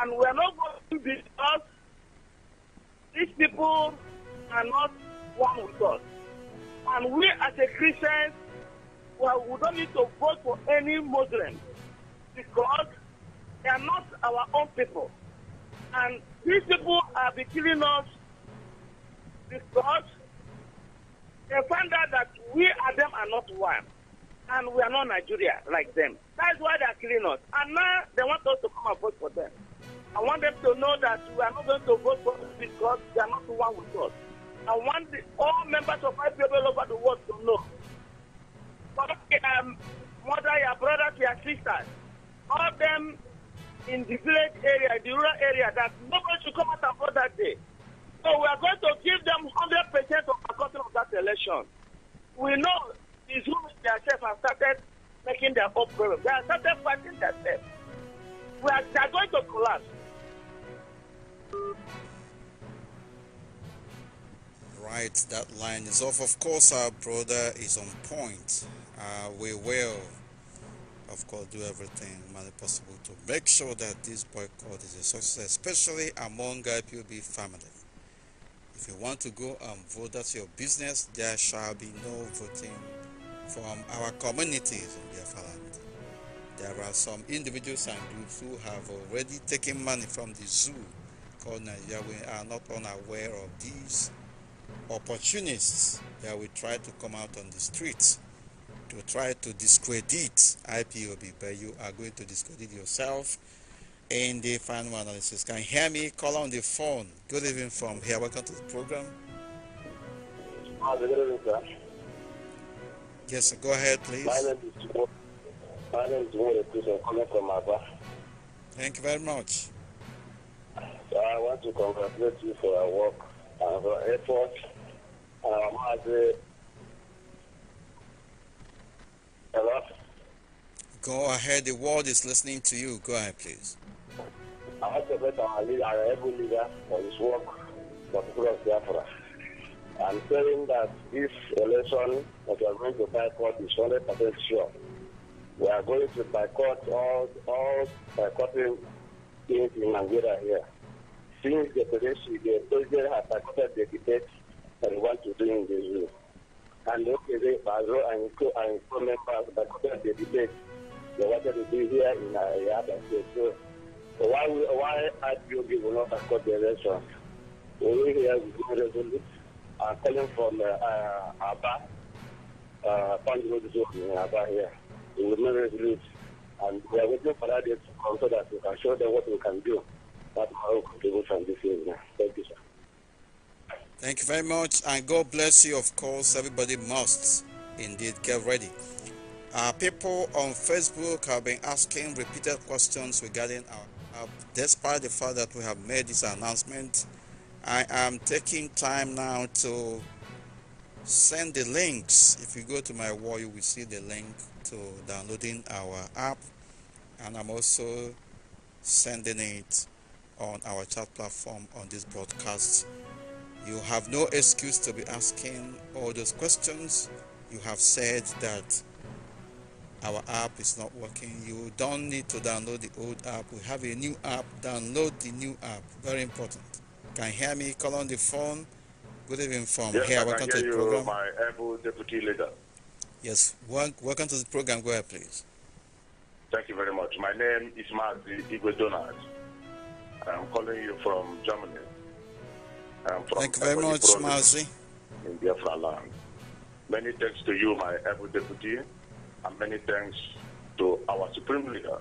And we are not going to be us. These people are not one with us. And we as a Christian, well, we don't need to vote for any Muslim because they are not our own people. And these people are be killing us because they find out that we and them are not one and we are not Nigeria like them. That's why they are killing us. And now they want us to come and vote for them. I want them to know that we are not going to vote for them because they are not the one with us. I want the, all members of people all over the world to know. But um, mother, your brother, your sisters, all of them in the village area, the rural area, that nobody should come out and vote that day. So we are going to give them 100% of the control of that election. We know who themselves have started making their own They have started fighting themselves. We are, they are going to collapse. Right, that line is off. Of course, our brother is on point. Uh, we will, of course, do everything humanly possible to make sure that this boycott is a success, especially among IPOB family. If you want to go and vote, that's your business. There shall be no voting from our communities in There are some individuals and groups who have already taken money from the zoo called Nigeria. We are not unaware of these opportunists that will try to come out on the streets to try to discredit IPOB, but you are going to discredit yourself in the final analysis. Can you hear me? Call on the phone. Good evening from here. Welcome to the program. Ah, good evening, sir. Yes, sir. go ahead, please. My name is my name is Mure Christian, coming from Abba. Thank you very much. So I want to congratulate you for your work and uh, your effort. Um, as a... Hello? Go ahead, the world is listening to you. Go ahead, please. I want to thank our leader, our every leader, for his work for the people of Biafra and saying that this election that we are going to boycott is 100% sure. We are going to boycott all, all boycotting things in Nigeria here. Since the president, the president has boycotted the debate and want to do in the zoo. And okay, they, Bazo and co and co members boycotted the debate they wanted to be here in our other state. So, so why, why IPOB will not boycott the election? Over here, we go resolution. I'm uh, calling from uh, uh Abba, uh, Panjiro Zone in Abba here, in the Memory And we are waiting for that to come so that we can show them what we can do. That's my contribution this evening. Thank you, sir. Thank you very much, and God bless you. Of course, everybody must indeed get ready. Uh, people on Facebook have been asking repeated questions regarding our app, despite the fact that we have made this announcement I am taking time now to send the links. If you go to my wall, you will see the link to downloading our app, and I'm also sending it on our chat platform on this broadcast. You have no excuse to be asking all those questions. You have said that our app is not working. You don't need to download the old app. We have a new app. Download the new app. Very important. Can you hear me? Call on the phone. Good evening from yes, here. welcome to the program. My Apple deputy leader. Yes, welcome to the program. Go ahead, please. Thank you very much. My name is Mazi Igwe Donald. I'm calling you from Germany. From Thank you very much, Mazi. In Biafra land. Many thanks to you, my Apple deputy, and many thanks to our supreme leader,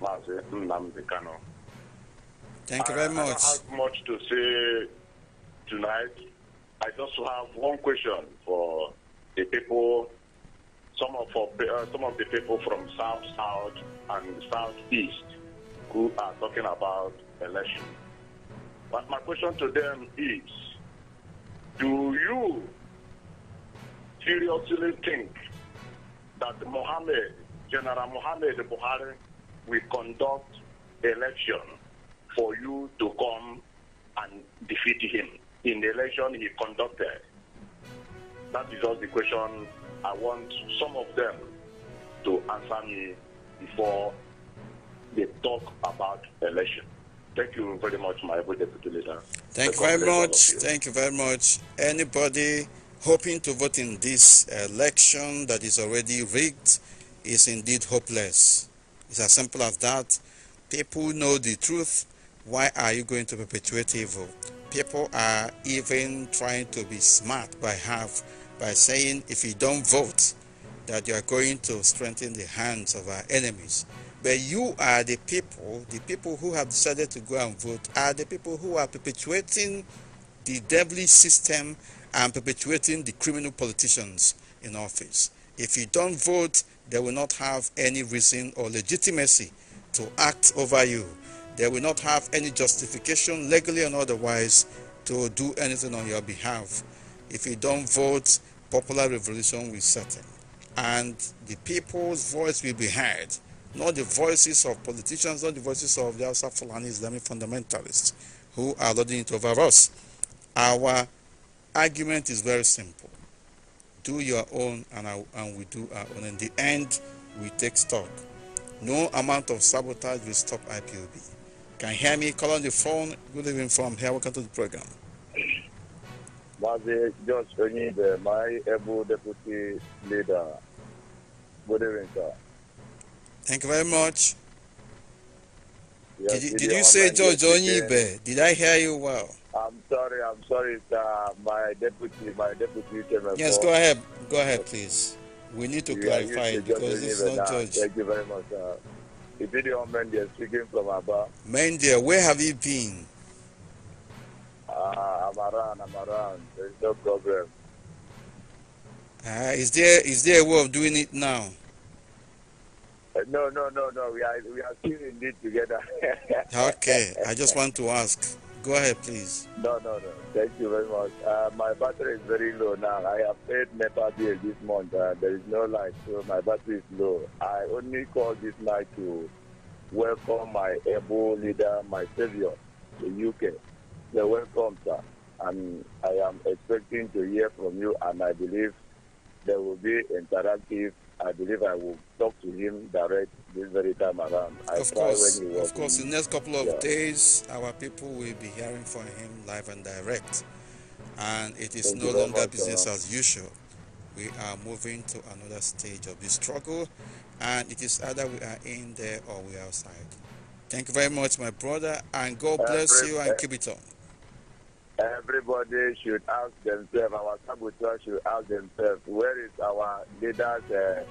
Mazi Nnamdi Kano. Thank you very much. I don't have much to say tonight. I just have one question for the people, some of, uh, some of the people from South, South, and Southeast who are talking about election. But my question to them is, do you seriously think that Mohammed, General Mohammed Buhari, will conduct election for you to come and defeat him in the election he conducted? That is all the question I want some of them to answer me before they talk about election. Thank you very much, my deputy leader. Thank you very much. You. Thank you very much. Anybody hoping to vote in this election that is already rigged is indeed hopeless. It's as simple as that. People know the truth why are you going to perpetuate evil? People are even trying to be smart by half by saying if you don't vote, that you are going to strengthen the hands of our enemies. But you are the people, the people who have decided to go and vote, are the people who are perpetuating the devilish system and perpetuating the criminal politicians in office. If you don't vote, they will not have any reason or legitimacy to act over you. They will not have any justification, legally and otherwise, to do anything on your behalf. If you don't vote, popular revolution will settle. And the people's voice will be heard, not the voices of politicians, not the voices of the Hausa Fulani Islamic fundamentalists who are lording it over us. Our argument is very simple. Do your own and, our, and we do our own. In the end, we take stock. No amount of sabotage will stop IPOB. Can you hear me? Call on the phone. Good evening from here. Welcome to the program. Mazi George uh, my able deputy leader. Good evening, sir. Thank you very much. Yes, did you, did you say George Onyibe? Did I hear you well? I'm sorry, I'm sorry, sir. My deputy, my deputy came Yes, go ahead. Go ahead, please. We need to clarify it because it's not George. Thank you very much, sir. Ibidio Mendia speaking from Aba. Mendia, where have you been? Uh, I'm around, I'm around. There's no problem. Uh, is there is there a way of doing it now? Uh, no, no, no, no. We are we are still in it together. okay, I just want to ask. Go ahead, please. No, no, no. Thank you very much. Uh, my battery is very low now. I have paid NEPA bill this month. Uh, there is no light, so my battery is low. I only call this night to welcome my able leader, my savior, the UK. So welcome, sir. And I am expecting to hear from you, and I believe there will be interactive I believe I will talk to him direct this very time around. I of course, of course, in the next couple of yeah. days, our people will be hearing from him live and direct, and it is Thank no longer business as usual. We are moving to another stage of the struggle, and it is either we are in there or we are outside. Thank you very much, my brother, and God bless you and keep it on. Everybody should ask themselves, our saboteurs should ask themselves, where is our leaders' uh,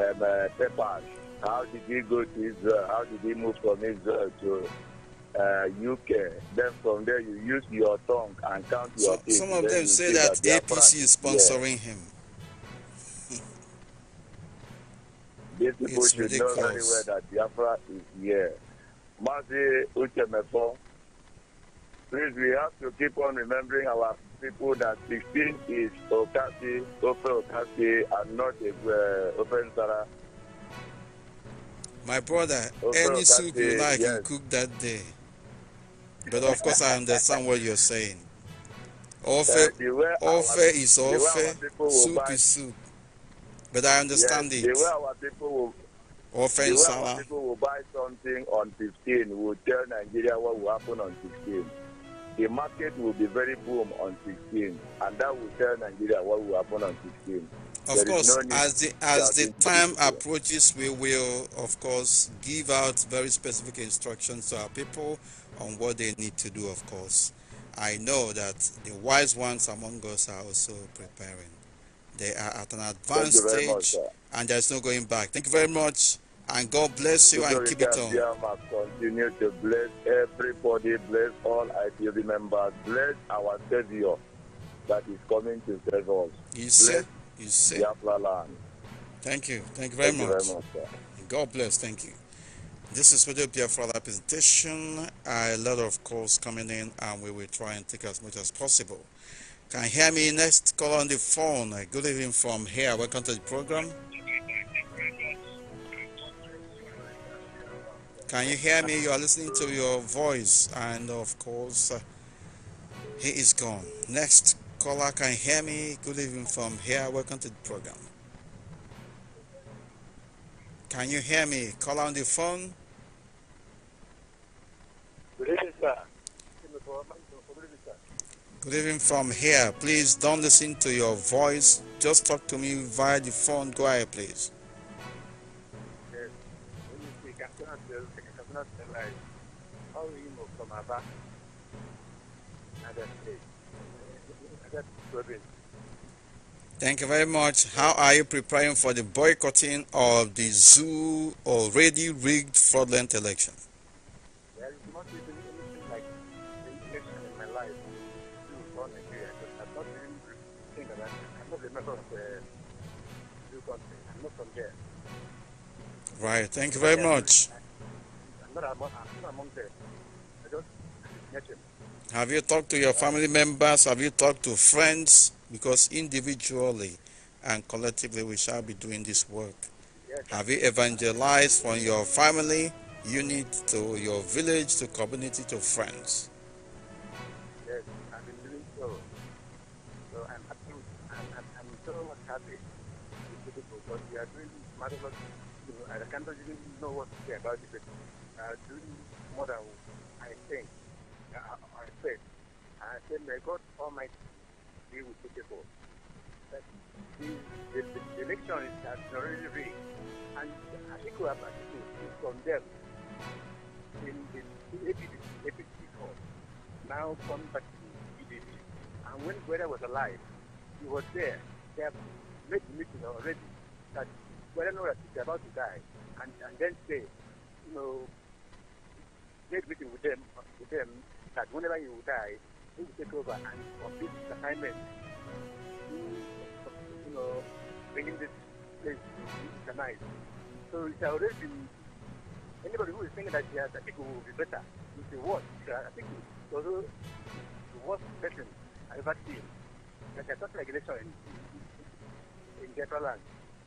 um, uh, papers? How did he go to Israel? How did he move from Israel to uh, UK. Then from there, you use your tongue and count your so, Some of them say that, that APC is sponsoring yeah. him. These people it's should ridiculous. know very well that Biafra is here. Mazi Uchemefo Please, we have to keep on remembering our people that 16 is Okasi, Ofe Okasi, and not uh, My brother, Ofe any Okasi, soup you like, yes. you cook that day. But of course, I understand what you're saying. Ofe, uh, ofe is ofe, soup is soup. But I understand yes, it. The way our people will, ofe the way our people will buy something on 15 will tell Nigeria what will happen on 16 the market will be very boom on 16, and that will tell Nigeria what will happen on 16. Of there course, no as the as the time approaches, we will of course give out very specific instructions to our people on what they need to do. Of course, I know that the wise ones among us are also preparing. They are at an advanced stage, much, and there's no going back. Thank you very much. And God bless you and keep it on. Continue to bless everybody, bless all IPOB members, bless our Savior that is coming to save us. You said, you said. Thank you. Thank you very Thank much. You very much God bless. Thank you. This is Radio Biafra presentation. A lot of calls coming in, and we will try and take as much as possible. Can you hear me next? Call on the phone. Good evening from here. Welcome to the program. Can you hear me? You are listening to your voice, and of course, uh, he is gone. Next caller, can you hear me? Good evening from here. Welcome to the program. Can you hear me? Call on the phone. Good evening, sir. Good evening from here. Please don't listen to your voice. Just talk to me via the phone. Go ahead, please cannot How from Thank you very much. How are you preparing for the boycotting of the zoo already rigged fraudulent election? like in my life. I'm not even thinking about it. I'm not a member of the zoo country. I'm not from there. Right. Thank you very much. I'm not, I'm not among them. I just met him. Have you talked to your family members? Have you talked to friends? Because individually and collectively we shall be doing this work. Yes. Have you evangelized from your family unit to your village to community to friends? know what to say about it, but uh, doing I, I think, uh, I said, I said, may God Almighty be with the people. That the, the, the election is already rigged, and I think we have to condemn in the APC, APC court. Now come back to EDP. And when Gweda was alive, he was there. They have made the meeting already that whether knows he's about to die, and, and then say, you know, make meeting with them, with them that whenever you die, he will take over and complete the assignment. Mm, you know, bringing this place to night. So it's already been, anybody who is thinking that yes, I think it will be better, you say what? I think it's also the worst person I've ever seen. There's a total regulation in, in, in Japan land.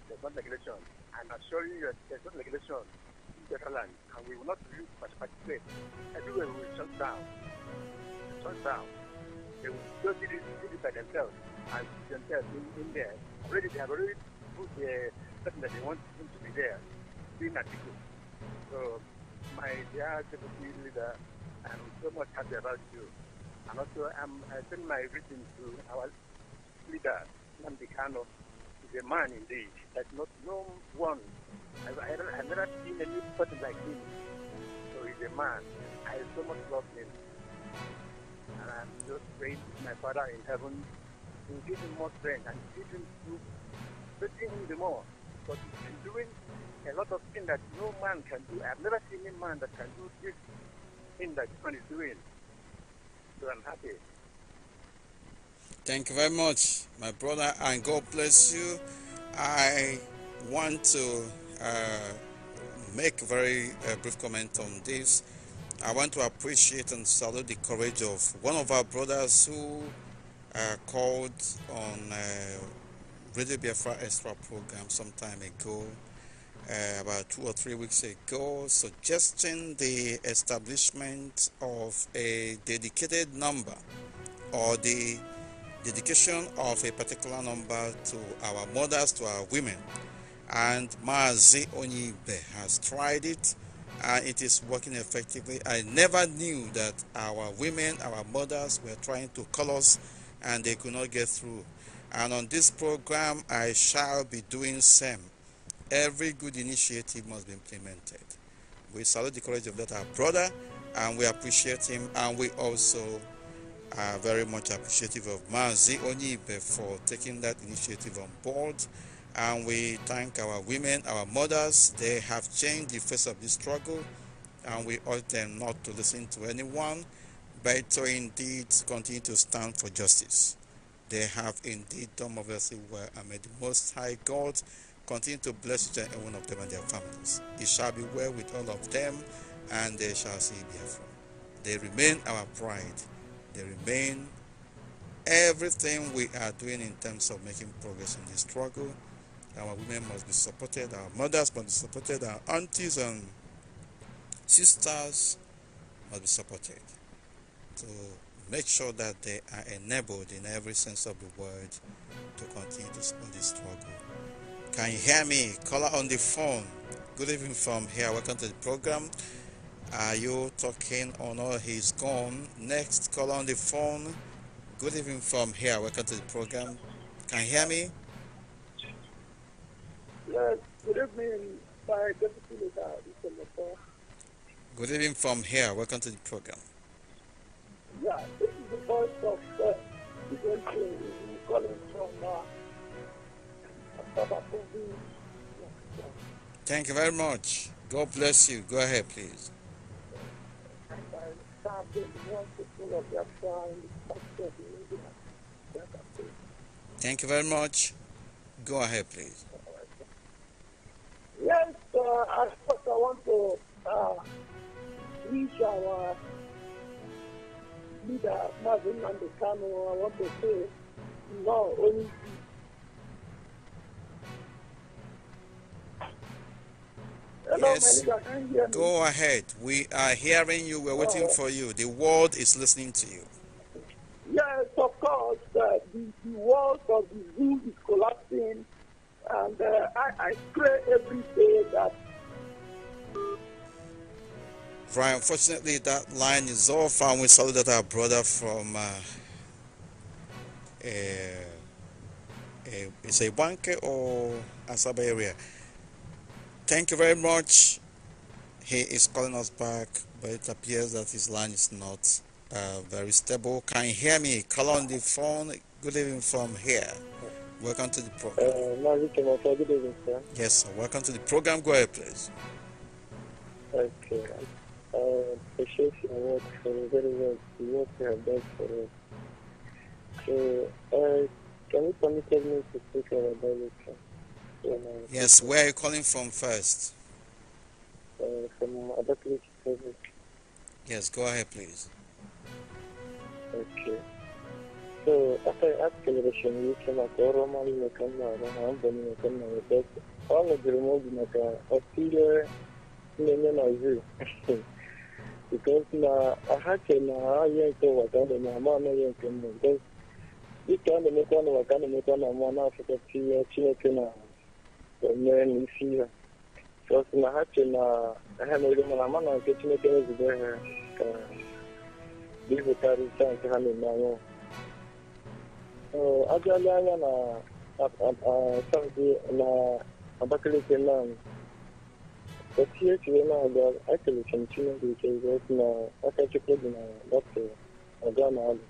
There's not regulation. I'm assuring you that there's no regulation in Catalan, and we will not use participate. Everywhere we will shut down. Shut down. They will just do it by themselves and themselves in, in there. Already they have already put the person that they want him to be there in article. So my dear deputy leader, I'm so much happy about you. And also I'm I send my greetings to our leader, Nandikano a man indeed. That not no one. i I have i have never seen a new person like him. So he's a man. I so much love him, and I'm just praying to my Father in heaven to give him more strength and give him to strengthen him the more. But he's doing a lot of things that no man can do. I've never seen a man that can do this thing that this man is doing. So I'm happy. Thank you very much, my brother, and God bless you. I want to uh, make a very uh, brief comment on this. I want to appreciate and salute the courage of one of our brothers who uh, called on uh, Radio Biafra Extra program some time ago, uh, about two or three weeks ago, suggesting the establishment of a dedicated number or the dedication of a particular number to our mothers, to our women. And Maazi Onyibe has tried it and it is working effectively. I never knew that our women, our mothers were trying to call us and they could not get through. And on this program, I shall be doing same. Every good initiative must be implemented. We salute the courage of that our brother and we appreciate him and we also are very much appreciative of Mazi Onyibe for taking that initiative on board. And we thank our women, our mothers. They have changed the face of this struggle, and we urge them not to listen to anyone, but to indeed continue to stand for justice. They have indeed done obviously well, and may the Most High God continue to bless each and one of them and their families. It shall be well with all of them, and they shall see Biafra. They remain our pride they remain everything we are doing in terms of making progress in this struggle. Our women must be supported, our mothers must be supported, our aunties and sisters must be supported to make sure that they are enabled in every sense of the word to continue this, this struggle. Can you hear me? Caller on the phone. Good evening from here. Welcome to the program. Are you talking or no? He's gone. Next call on the phone. Good evening from here. Welcome to the program. Can you hear me? Yes, good evening, my deputy leader, Mr. Good evening from here. Welcome to the program. Yeah, this is the voice of uh, the calling from uh, Thank you very much. God bless you. Go ahead, please. Thank you very much. Go ahead, please. Yes, uh, I first I want to uh, reach our leader, Marvin Mandekano. I want to say, no, only Yes, go ahead. We are hearing you. We're waiting oh. for you. The world is listening to you. Yes, of course. Uh, the, the, world of the zoo is collapsing. And uh, I, I pray every day that Right, unfortunately, that line is off, and we salute that our brother from uh, uh, uh, it's a or Asaba area thank you very much. He is calling us back, but it appears that his line is not uh, very stable. Can you hear me? Call on the phone. Good evening from here. Welcome to the program. Uh, good evening, sir. Yes, sir. Welcome to the program. Go ahead, please. Okay. I appreciate your work for very much. The work you have done for us. So, uh, can you permit me to speak about that? Yes, where are you calling from first? Uh, from other place. Yes, go ahead, please. Okay. So after acceleration, you came at Oromal, Nakama, Rambam, Nakama, but all of the remote Naka, Australia, Nenanazu. Because na ahake na yenko wakanda na amana yenko because ikanda mekwana wakanda mekwana amana afika pia chineke na onye na eh, isi ya sọsị na ha che na ha mere mana ama na nke chineke wezụga ha ka bipụtarịta nke ha na-eme anya abịala anya na saụdị na abakaliki naanị otu ihe chiri na-aga ekelechi m chineke ike ezi na aka chukwu dị na dọkịta ọga na alụ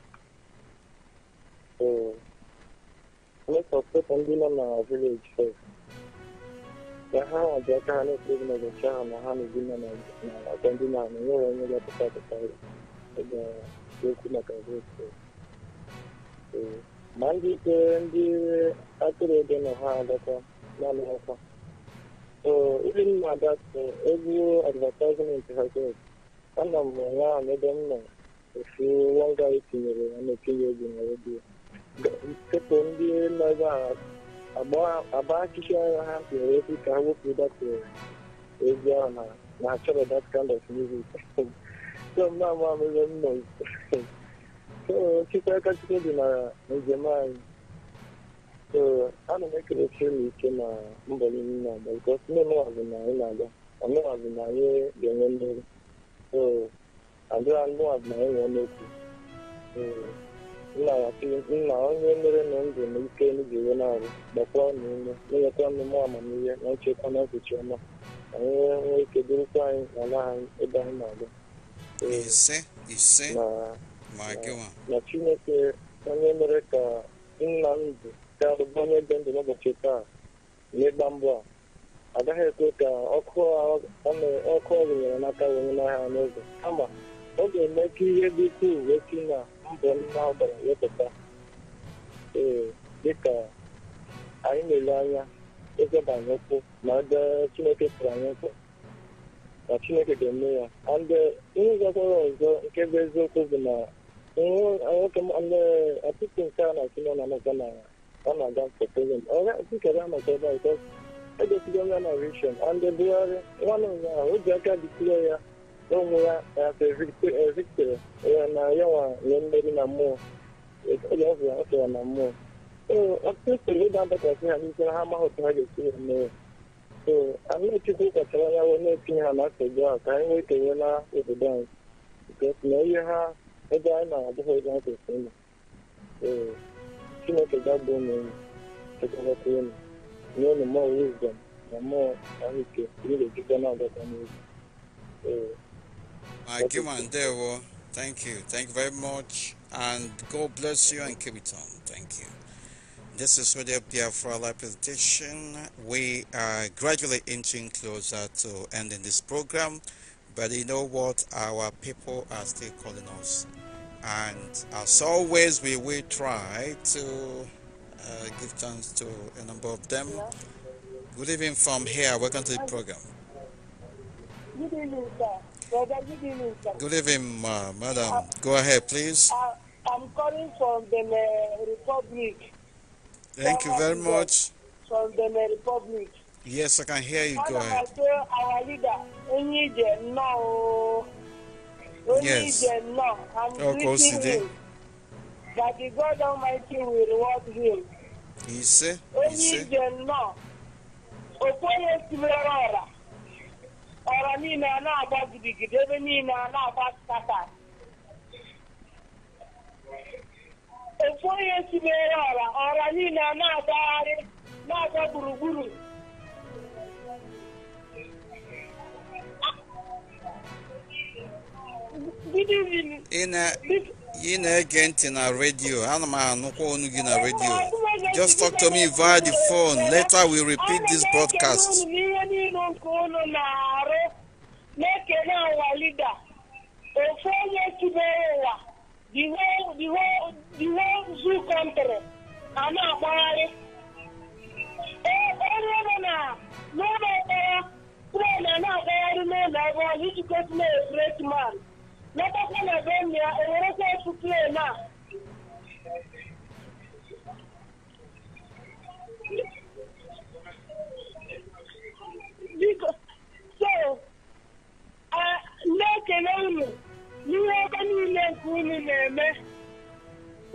Most of ndị nọ na village first don ha waje aka hana su yi mai ha na ha na gina na gandina na yau wani ya fita da tsari ga dokuna karfe su ma ndị ike ndị atụrụ ebe na ha adọta naanị ọkwa so ibi m na ha ana m ahụ m nọ ofu etinyere ya na-etinye na redio agba akụkọ agha ha nwere ezi ka wepụ dapụrụ ezi ahụ na na achọrọ that kind of music so m na-ama amụrụ m so chukwu aka chukwu dị na njem anyị so ana m ekele chiri ike na mbọ niile na-agba bikos ndị ọmụwazụ na anyị na-aga ọmụwazụ na anyị ga-enwe mmeri so adịra ndị ọmụwazụ na anyị nwee n'okwu nna onye na ndụ na ike enu ga-enwe naanị gbakwa na ume na-enweta mmemme amamihe na nchekwa na ụbọchị ọma ka anyị nwee ike dịrịkwa anyị na ala anyị ebe anyị na-aga ise ise na chineke onye mere ka nna ndụ ka alụba onye ebe ndụ n'ụbọchị taa n'ịgba mbọ a agaghị ekwe ka ọkụ ọ nyere n'aka wee n'ahịa n'ụzọ kama ọ ga-eme ka ihe dị ukwuu wee si na mbọ ndị ahụ gbara wepụta ee dịka anyị na-ele anya ezeba anyị ụkwụ na ndị chineke tụrụ anyị ụkwụ na chineke ga-eme ya ndị ihe gakwara ọzọ nke bụ eziokwu bụ na nwoke ọtụtụ nke a na-achị na amaka na ọ na-aga poland ọra tikere amaka ebe a egosigo onye na rishon ndị bugharị nwanne ụnyaahụ o ji aka dịtụrụ ya ụmụ ya evitere ya na nwa nye mmeri na mmụọ ya ọ bụla ọ na mmụọ ọtụtụ soro ịda adakasị ha n'ihe ha amaghị otu ha ga-esi ya mee so anachukwu ya wee na-etinye ha na nsogbu a ka anyị nwee na obodo anyị na ihe ha ebe anyị na-abụghị ebe kwesịrị ee chineke gagbuo na ụmụ nye mmụọ na mmụọ ahụike ejikwa na-agakwa n'oge ee I give Thank you. Thank you very much. And God bless you and keep it on. Thank you. This is Radio Biafra Live Presentation. We are gradually inching closer to ending this program. But you know what? Our people are still calling us. And as always, we will try to uh, give chance to a number of them. Good evening from here. Welcome to the program. Good evening, sir. Good evening, ma madam. Uh, Go ahead, please. Uh, I'm calling from the uh, Republic. Thank from you very much. From the uh, Republic. Yes, I can hear you. Go ahead. Our leader, now. Oh. Yes. Now. I'm oh, that the God Almighty will reward him. He said. He said. Only the Okoye Simerora. Ọrọ niile a na-agba gidigidi ebe niile a na-agba nkata ofu onye tibere ọra ọra niile a na-agbagharị na-agba gburugburu good evening ị na-ege ntị na redio ana m anụkwa ọnụ gị na redio just talk to me via the phone later we repeat this broadcast. na-ekele ụwa lida ofu onye tụbere ụwa diwe zu kọntrị a na-akpagharị onye nọ na n'ụlọ mkpọrọ trena na-agagharị n'ụlọ ebe ọzọ iji gosi na efuretman n'ọkpọkọ na be ya enwere ike ịtụ plen a biko so na-ekele unu n'ihe ebe niile nke unu na-eme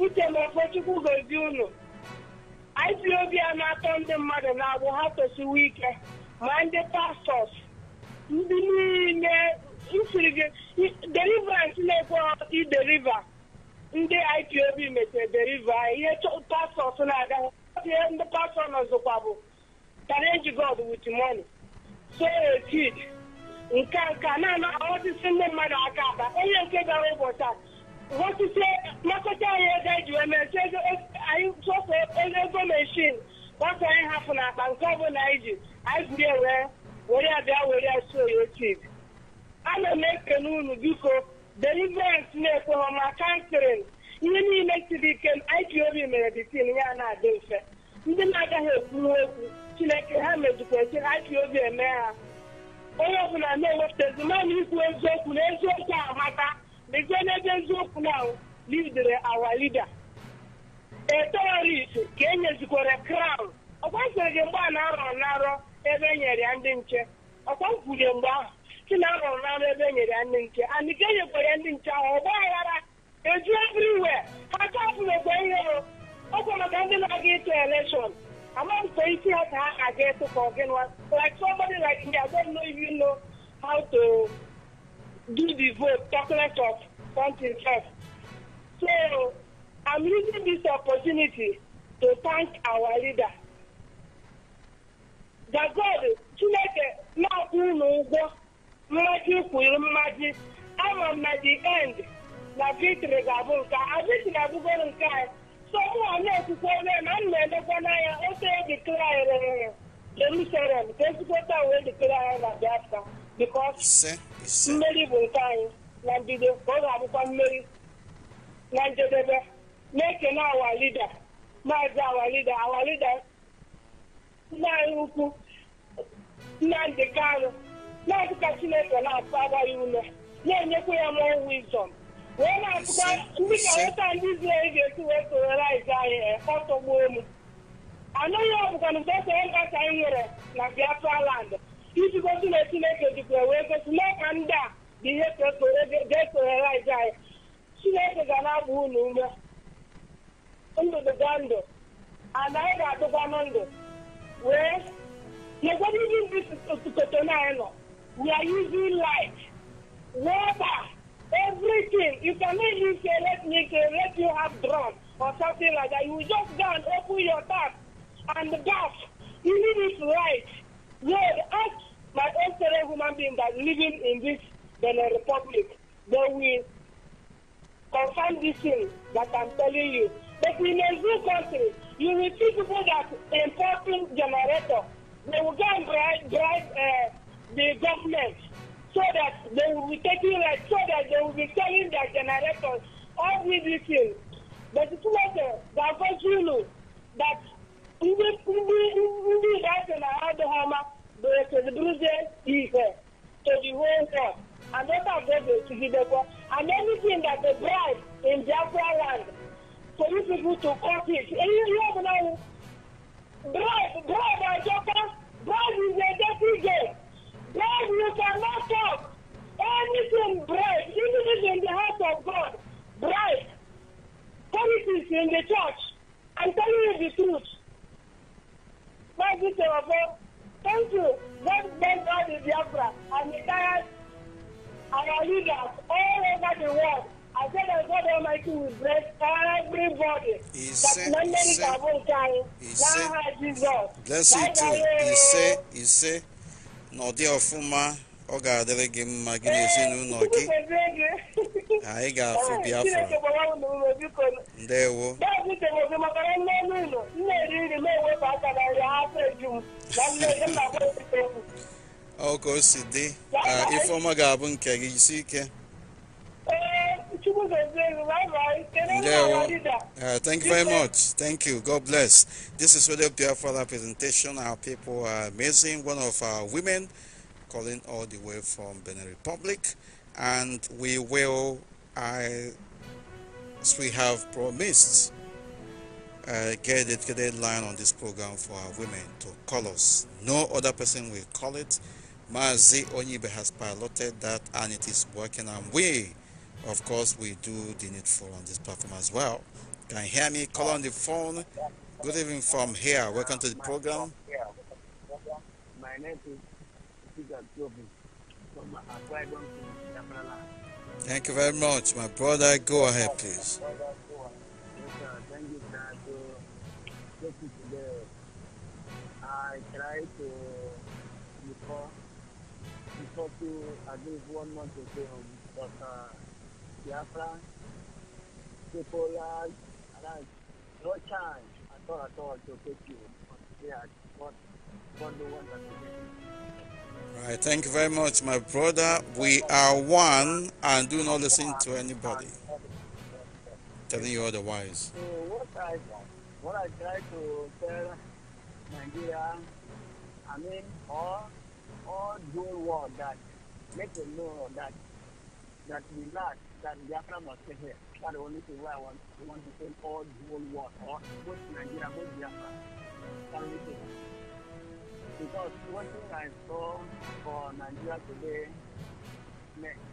uche na okpochukwu gozie unu IPOB a na-atọ ndị mmadụ na-abụ ha tosiwo ike ma ndị pastọs ndị niile nsiri gị deliverance na-ekwe ideliva ndị ipob metere deliva ihe pastọs na-aga ihe ndị pastọ nọzụkwa bụ challenge god with money so a kid nke nke na-ana ọtụtụ ndị mmadụ aka aba onye nke gara ụbọchị a wọtụtụ nakọta e anyị ego eji wee mechi anyị sọsọ ego meshin gbasa anyị hapụ n'akpa nke ọbụla anyị ji anyị buru wee were ya bịa were ya so ana m ekene unu biko deliverance na-ekwe homa kanserin ihe niile siri ike IPOB mere ditin ya na-adị mfe ndị na-agaghị ekwuru okwu chineke ha mejikwachi IPOB eme ha onye ọbụla na-ewepụtazi mmanụ ikwu eziokwu na eziokwu amata mezie n'ebe eziokwu na lidere awa lida eterorist ka e nyezikwara crown ọkwa sịrị gị mgbe a na-arọ narọ ebe e nyere ya ndị nche ọkwa kwurie mgbe ahụ kila rọrọ ebe nyere ya ndị nke and nke nyekwara ndị nke ahụ ọgba aghara eju everywhere ha chapụrụ egbe ihere ọ maka ndị na-aga ịtụ elekshọn amaghị isi ha ka ha aga ịtụ ka ọgị nwa like somebody like me how to do the vote talk of something first so I'm using this opportunity to thank our leader that God Chineke na-akwụ unu ụgwọ mmaji kwuru mmaji ama na di end na victory ga-abụ nke a victory abụgoro nke anyị so mụwa na-ekwukwe ebe na m na-elekwa n'anya otu edikrarịrị Jerusalem ka ezikwota wee dikere anyị na Biafra because mmeri bụ nke anyị na mbido ka ọ ga-abụkwa mmeri na njedebe na-ekene awa lida maazị awa lida awa lida nna anyị ukwu Nnamdị Kanụ na-adịka chineke na-atụgharị ya ume na-enyekwa ya mụọ wizọm wee na-atụkwa ndị ka nweta ndị Izrel ga-esi wee sororaiz anyị ọtọgbuo mụ. anụghị ọbụkwa na mgbe esere ka anyị nwere na Biafra land iji gosi na chineke jikwa wee gosi mee ka ndị a bụ ihe ga-esororaiz anyị chineke ga na-agba unu ume ndụ ndụ ana anyị ga-adịkwanụ ndụ wee nyekwana ndị ndị kotonanyị nọ we are using light, water, everything. You cannot use say let me say, let you have drug or something like that. You just go and open your tap and gas. need if right, yeah, ask my own fellow human being that living in this Benin Republic, they will confirm this thing that I'm telling you. But in a zoo country, you will see people that importing generator. They will go and drive, drive uh, the government so that they will be taking rent so that they will be selling their generators all these details the situation the akọ zulu that ndị ndị ndị ga-asị na ha adịghị ọma ga-ekeziburuzie ihe to the whole world and that of them ga-etigidekwa and anything that they bribe in biafra land for you people to cut it ihe ihe ọbụla bribe bribe ajọkwa bribe is a dirty game God, you cannot talk. Anything bright, even if in the house of God, bright. Politics in the church. I'm telling you the truth. My this is Thank you. God bless all the Biafra and the tired our leaders all over the world. I said that God Almighty will bless everybody. He said, he said, he said, he said, he said, n'ọdị ọfụma ọ ga-adịrị gị mma gị na ezinụlọ gị anyị ga-afụ biafra ndewo ọ ka o si dị ifeọma ga-abụ nke gị isi ike Uh, thank you very much. Thank you. God bless. This is really beautiful presentation. Our people are amazing. One of our women calling all the way from Benin Republic, and we will, I, as we have promised, uh, get a dedicated line on this program for our women to call us. No other person will call it. Mazi Onyibe has piloted that, and it is working. And we of course we do the needful on this platform as well can you hear me call on the phone good evening from here welcome to the program my name is thank you very much my brother go ahead please I tried to before before to at least one month so, but uh, Biafra, no chance to you. the one that thank you very much, my brother. We are one and do not listen to anybody telling you otherwise. So what I, what I try to tell Nigeria, I mean, all, all world that make them know that that we lack that Biafra must stay here. That's the only thing where I want, I want to say all the whole world, or both Nigeria, both Biafra. That's the only thing. Because one thing I saw for Nigeria today, next.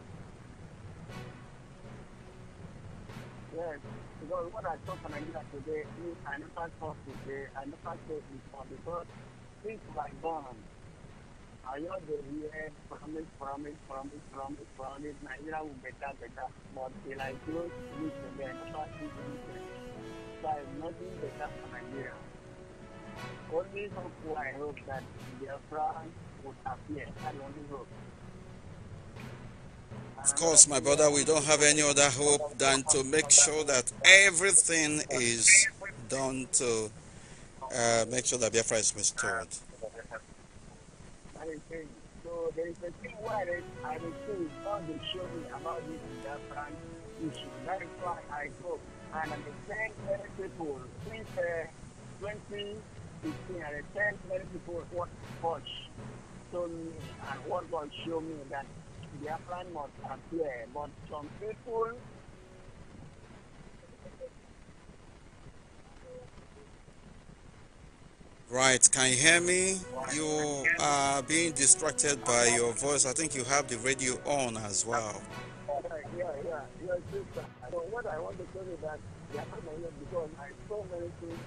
Yes, because what I saw for Nigeria today is an impact of today, an impact of because things were gone promise, promise, promise, promise, So I am not better for Nigeria. Only hope I hope that Biafra would appear. I only hope. Of course, my brother, we don't have any other hope than to make sure that everything is done to uh, make sure that Biafra is restored anything. So there is a thing where I will say, the show me about this Biafran issue. That is why I hope and I send many people since uh, 2015, I sent many people what God told me and what God showed me that plan must appear. But some people Right, can you hear me? You are being distracted by your voice. I think you have the radio on as well. Yeah, yeah, yeah. So what I want to tell you that the are not my because I so many things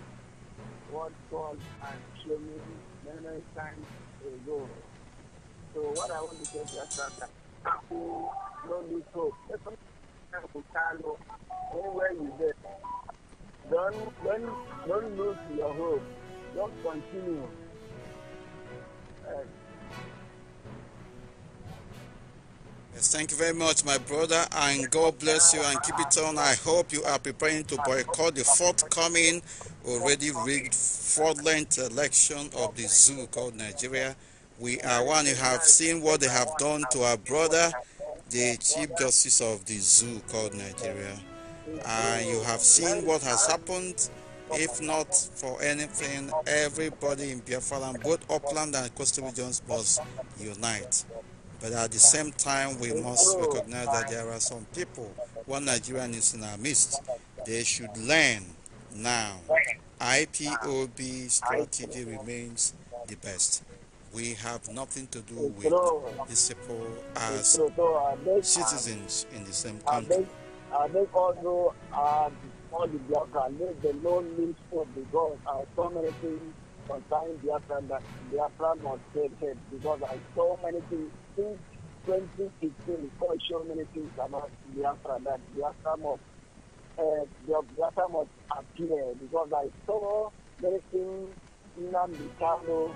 what God and showed me many, many times ago. So what I want to tell you is that people don't do so. Anywhere you get, don't, don't, don't lose your hope. Don't continue. thank you very much, my brother, and God bless you and keep it on. I hope you are preparing to boycott the forthcoming, already rigged, fraudulent election of the zoo called Nigeria. We are one. You have seen what they have done to our brother, the Chief Justice of the zoo called Nigeria. And you have seen what has happened if not for anything, everybody in Biafra, both upland and coastal regions, must unite. But at the same time, we must recognize that there are some people, one Nigerian is in our midst. They should learn now. IPOB strategy remains the best. We have nothing to do with these people as citizens in the same country all the Biafra, let the Lord live for because I saw many things concerning Biafra that Biafra must take head because I saw many things since 2016, God showed many things about Biafra that Biafra must, uh, eh, Biafra must appear because I saw many things in Ambikano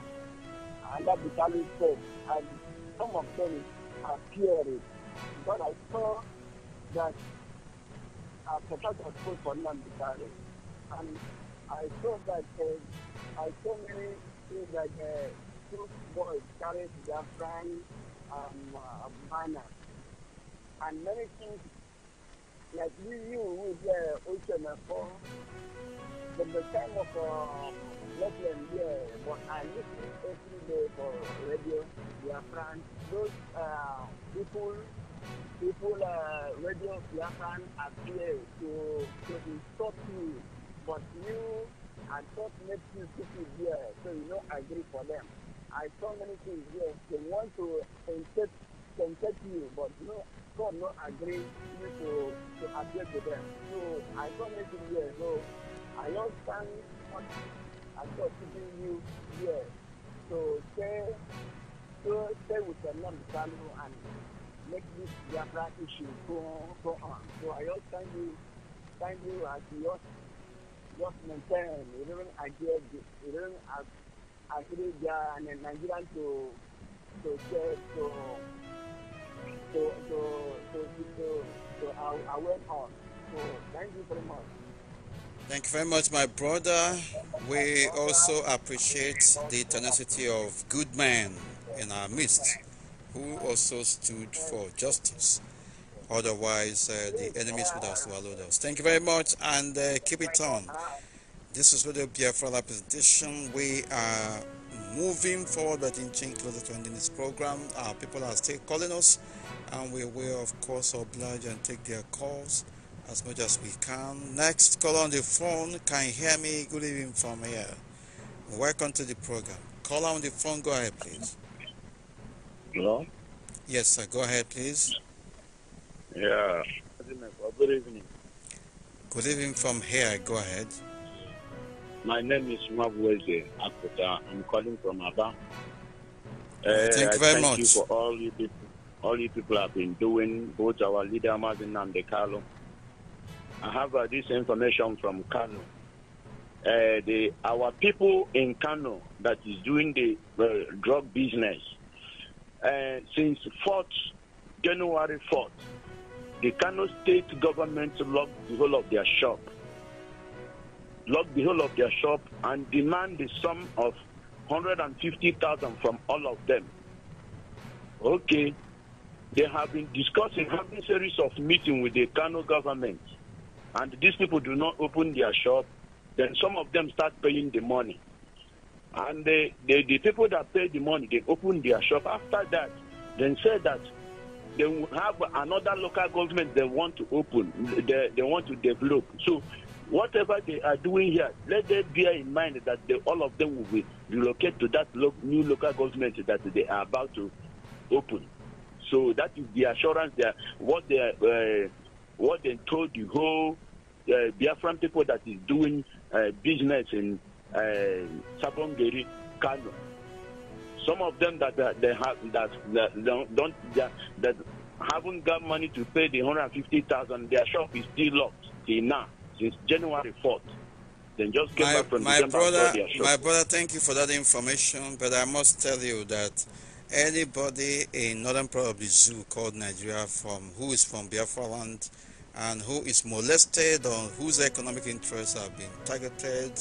and Ambikano said, and some of them appeared. But I saw that after that was put for Nambikari. And I saw that uh, I saw many things like uh, two boys carried their friends um, uh, banner. And many things like we knew with the ocean before, uh, from the time of uh, year, but I listen every day for radio, their friends, those uh, people people uh, radio Japan appear to to stop you, but you and what makes you people here, so you no agree for them. I saw many things here. They want to insult, insult you, but you know, God no agree you to, to appeal to them. So I saw many things here. So I don't stand on and God keeping you here. So stay, so stay with the non-Salo and make this Biafra issue go on, go on. So I just thank you, thank you as you just, just maintain, even against, even as, as and then Nigerian to, to say, to, to, to, to, to, to, to uh, aware on. So thank you very much. Thank you very much, my brother. We also appreciate the tenacity of good men in our midst who also stood for justice. Otherwise, uh, the enemies would have swallowed us. Thank you very much and uh, keep it on. This is Radio Biafra Live presentation. We are moving forward, but in change closer to ending this program. Our people are still calling us, and we will, of course, oblige and take their calls as much as we can. Next, call on the phone. Can you hear me? Good evening from here. Welcome to the program. Call on the phone. Go ahead, please. Hello? Yes, sir. Go ahead, please. Yeah. Good evening. Good evening from here. Go ahead. My name is Mabweze Akuta. I'm calling from Aba. Uh, thank eh, you very thank much. You for all you people, all you people have been doing, both our leader Martin and the Carlo. I have uh, this information from Kano. Uh, eh, the our people in Kano that is doing the uh, drug business uh, since 4th, January 4th, the Kano state government locked the whole of their shop, locked the whole of their shop, and demand the sum of 150,000 from all of them. Okay, they have been discussing, having series of meeting with the Kano government, and these people do not open their shop. Then some of them start paying the money. And the the people that paid the money, they opened their shop. After that, they said that they will have another local government they want to open, they, they want to develop. So whatever they are doing here, let them bear in mind that they, all of them will be relocated to that lo- new local government that they are about to open. So that is the assurance that what they uh, what they told the whole uh, Biafran people that is doing uh, business in Eh, Sapongeri, Kano. Some of them that, that they have that, that don't, that, that haven't got money to pay the 150,000. Their shop is still locked till now since January 4th. Then just came my, back from my December brother, My brother, thank you for that information. But I must tell you that anybody in northern part of the zoo called Nigeria from who is from Biafra land and who is molested or whose economic interests have been targeted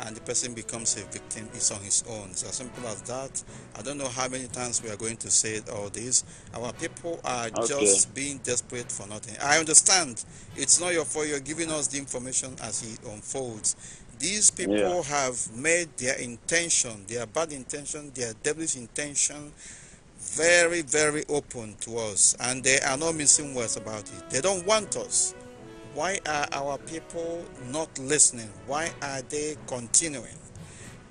and the person becomes a victim it's on his own it's as simple as that i don't know how many times we are going to say all this our people are okay. just being desperate for nothing i understand it's not your fault you're giving us the information as it unfolds these people yeah. have made their intention their bad intention their devilish intention very very open to us and they are not missing words about it they don't want us why are our people not listening? Why are they continuing?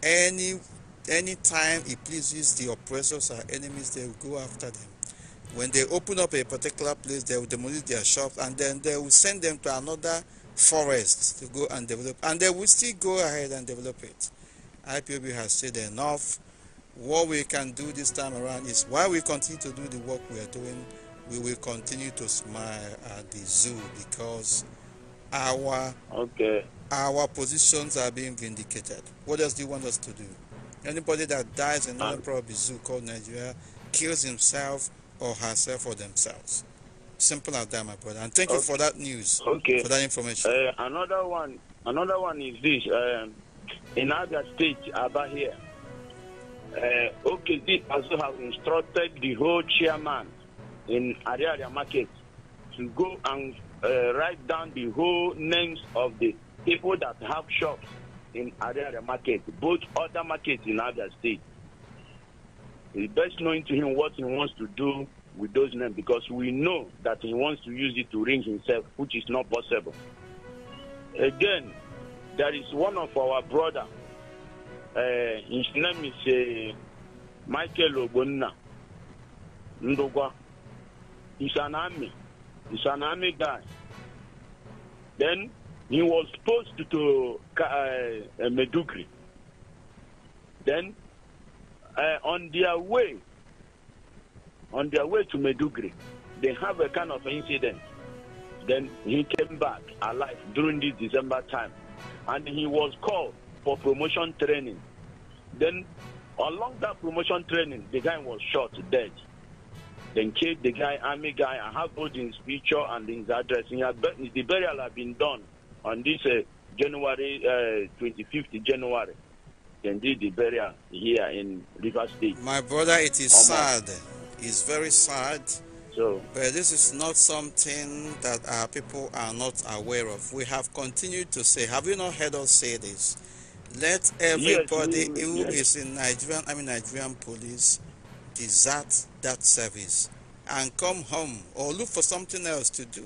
Any time it pleases the oppressors or enemies, they will go after them. When they open up a particular place, they will demolish their shops and then they will send them to another forest to go and develop. And they will still go ahead and develop it. IPOB has said enough. What we can do this time around is why we continue to do the work we are doing, we will continue to smile at the zoo because our okay our positions are being vindicated. What else do you want us to do? Anybody that dies in another ah. probably zoo called Nigeria kills himself or herself or themselves. Simple as that, my brother. And thank okay. you for that news. Okay. For that information. Uh, another one. Another one is this. Um, in other states, about here. Uh, this also have instructed the whole chairman in Ariaria market to go and uh, write down the whole names of the people that have shops in Ariaria market, both other markets in other State. It's best knowing to him what he wants to do with those names because we know that he wants to use it to ring himself, which is not possible. Again, there is one of our brother. Uh, his name is uh, Michael Obonna He's an army. He's an army guy. Then he was posted to uh, Medugri. Then uh, on their way, on their way to Medugri, they have a kind of incident. Then he came back alive during this December time, and he was called for promotion training. Then along that promotion training, the guy was shot dead. Then killed the guy, army guy. I have both his picture and his address. And had, the burial had been done on this uh, January uh, 25th, January. Then did the burial here in River State. My brother, it is sad. It's very sad. So, but this is not something that our people are not aware of. We have continued to say, have you not heard us say this? Let everybody yes, who yes. is in Nigerian, I mean Nigerian police, desert that service and come home or look for something else to do.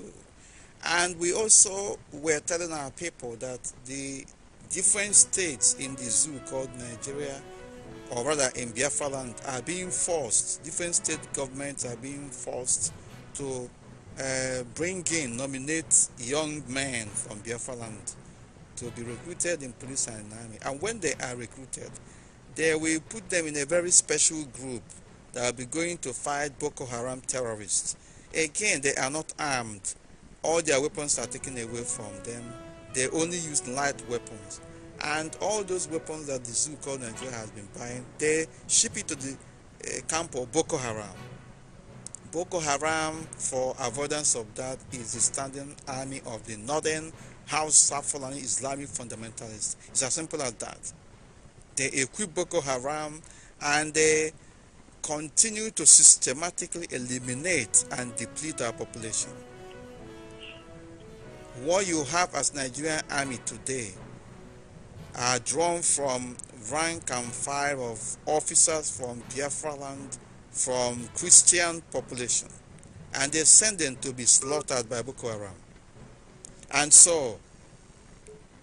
And we also were telling our people that the different states in the zoo called Nigeria, or rather in Biafra land, are being forced, different state governments are being forced to uh, bring in, nominate young men from Biafra land to be recruited in police and army. And when they are recruited, they will put them in a very special group that will be going to fight Boko Haram terrorists. Again, they are not armed. All their weapons are taken away from them. They only use light weapons. And all those weapons that the zoo called Nigeria has been buying, they ship it to the uh, camp of Boko Haram. Boko Haram, for avoidance of that, is the standing army of the northern House Fulani Islamic fundamentalists. It's as simple as that. They equip Boko Haram and they continue to systematically eliminate and deplete our population. What you have as Nigerian army today are drawn from rank and file of officers from Biafra land, from Christian population, and they send them to be slaughtered by Boko Haram. And so,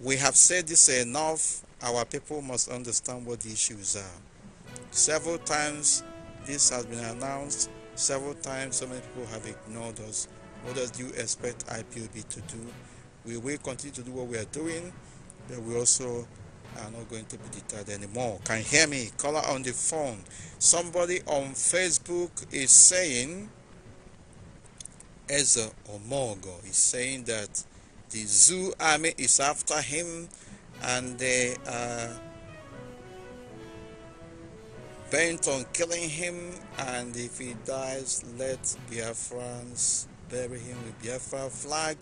we have said this enough, our people must understand what the issues are. Several times this has been announced several times. So many people have ignored us. What does you expect IPOB to do? We will continue to do what we are doing, but we also are not going to be deterred anymore. Can you hear me? Caller on the phone. Somebody on Facebook is saying, Ezra Omogo is saying that the zoo army is after him and they are bent on killing him, and if he dies, let Biafrans bury him with Biafra flag.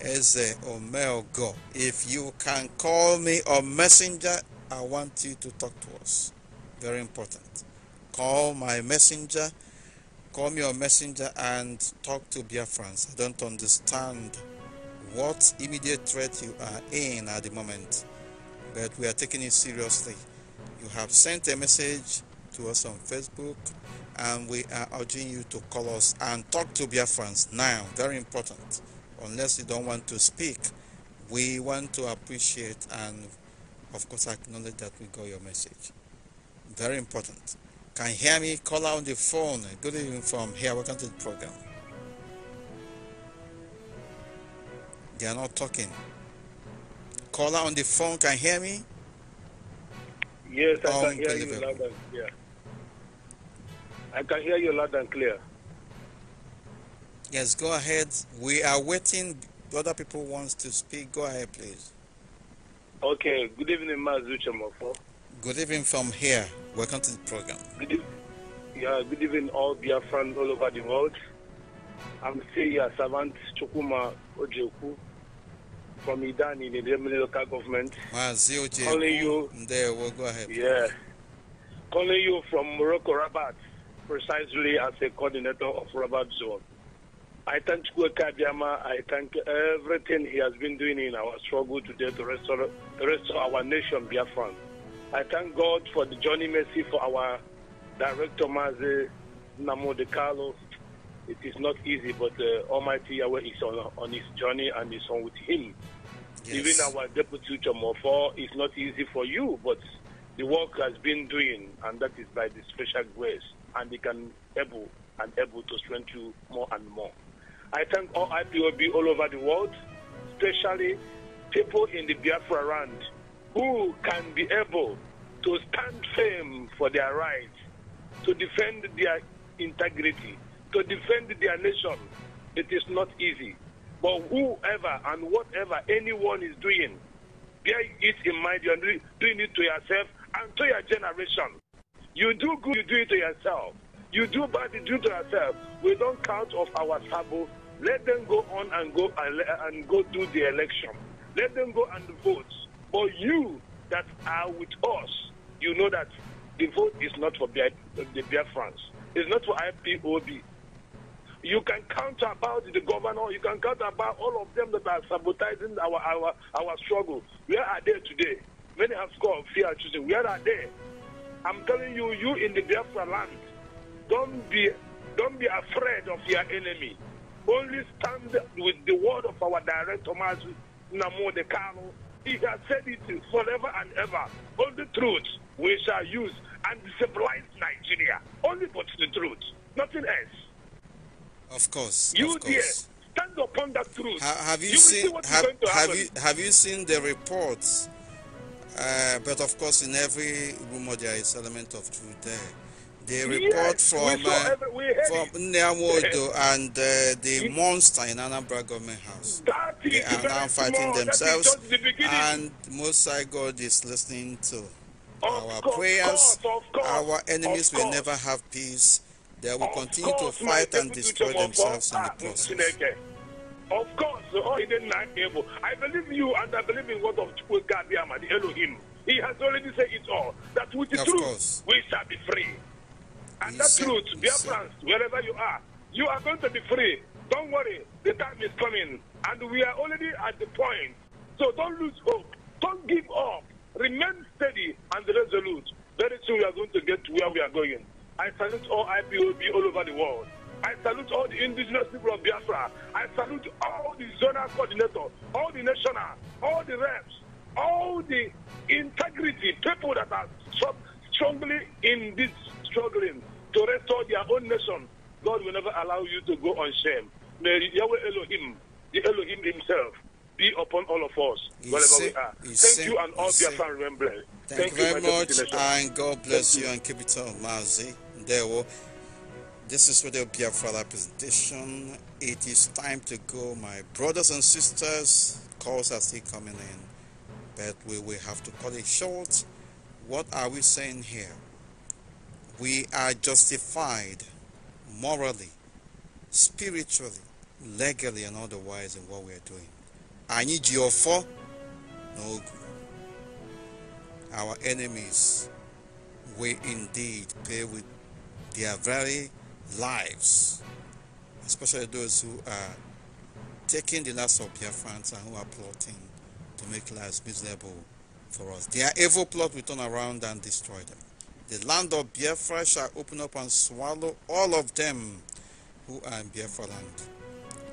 Eze Omelgo. If you can call me a messenger, I want you to talk to us. Very important. Call my messenger, call me a messenger and talk to Biafrans. I don't understand what immediate threat you are in at the moment, but we are taking it seriously. You have sent a message to us on Facebook, and we are urging you to call us and talk to friends now. Very important. Unless you don't want to speak, we want to appreciate and, of course, acknowledge that we got your message. Very important. Can you hear me? Call on the phone. Good evening from here. Welcome to the program. They are not talking. Caller on the phone can you hear me. Yes, I oh, can hear you loud and clear. I can hear you loud and clear. Yes, go ahead. We are waiting. Other people wants to speak. Go ahead, please. Okay. Good evening, Mazucha Mofo. Good evening from here. Welcome to the program. Good evening. Yeah, good evening, all friends all over the world. I'm still your servant, Chukuma Ojeku, from Idani in the local government. Wow, COJ. Calling you. There, we'll go ahead. Yeah. Calling you from Morocco, Rabat, precisely as a coordinator of Rabat Zone. I thank Kweka I thank everything he has been doing in our struggle today to restore, restore our nation, Biafran. I thank God for the journey mercy for our director, Mazi Namo De Carlos, it is not easy, but uh, Almighty Yahweh is on, on his journey and is on with him. Yes. Even our deputy Chomofo is not easy for you, but the work has been doing, and that is by the special grace, and they can able and able to strengthen you more and more. I thank all IPOB all over the world, especially people in the Biafra land who can be able to stand firm for their rights, to defend their integrity, to defend their nation. It is not easy. But whoever and whatever anyone is doing, bear it in mind. You're doing it to yourself and to your generation. You do good, you do it to yourself. You do bad, you do it to yourself. We don't count off our sabo. Let them go on and go and, and go do the election. Let them go and vote. But you that are with us, you know that the vote is not for the Biafrans. It's not for IPOB. You can count about the governor. You can count about all of them that are sabotaging our our our struggle. Where are they today? Many have scored fear choosing. Where are they? I'm telling you, you in the Biafra land, don't be don't be afraid of your enemy. Only stand with the word of our director, Mazu Namo De Carlo. He has said it forever and ever. All the truth we shall use and civilize Nigeria. Only but the truth, nothing else. Of course. You of course. stand upon that truth. Ha have you, you seen have, you have you seen the reports? Uh, but of course, in every rumor there is element of truth there. The report uh, yes, from uh, from Nyamodo and uh, the it, monster in Anambra government house. They are now fighting themselves, the and Most High God is listening to of our course, prayers. course, our enemies will never have peace they will continue to fight and destroy themselves in the process. Of course, all he not able. I believe you and I believe in what of Chukwukabiama, the Elohim. He has already said it all. That with the of truth, course. we shall be free. And he that said, truth, dear friends, wherever you are, you are going to be free. Don't worry, the time is coming. And we are already at the point. So don't lose hope. Don't give up. Remain steady and resolute. Very soon we are going to get to where we are going. I salute all IPOB all over the world. I salute all the indigenous people of Biafra. I salute all the zonal coordinators, all the national, all the reps, all the integrity people that are strongly in this struggling to restore their own nation. God will never allow you to go on shame. May Yahweh Elohim, the Elohim himself, be upon all of us, wherever say, we are. Thank say, you and all Biafran remembrance. Thank, thank you very much, and God bless you, you and keep it on, Mazi. There will. This is Radio Biafra presentation. It is time to go, my brothers and sisters. Calls are still coming in, but we will have to cut it short. What are we saying here? We are justified morally, spiritually, legally, and otherwise in what we are doing anyị ji ọfọ na ogu our enemies will indeed pay with their very lives especially those who are taking the last of Biafrans and who are plotting to make lives miserable for us. Their evil plot will turn around and destroy them. The land of Biafra shall open up and swallow all of them who are in Biafra land.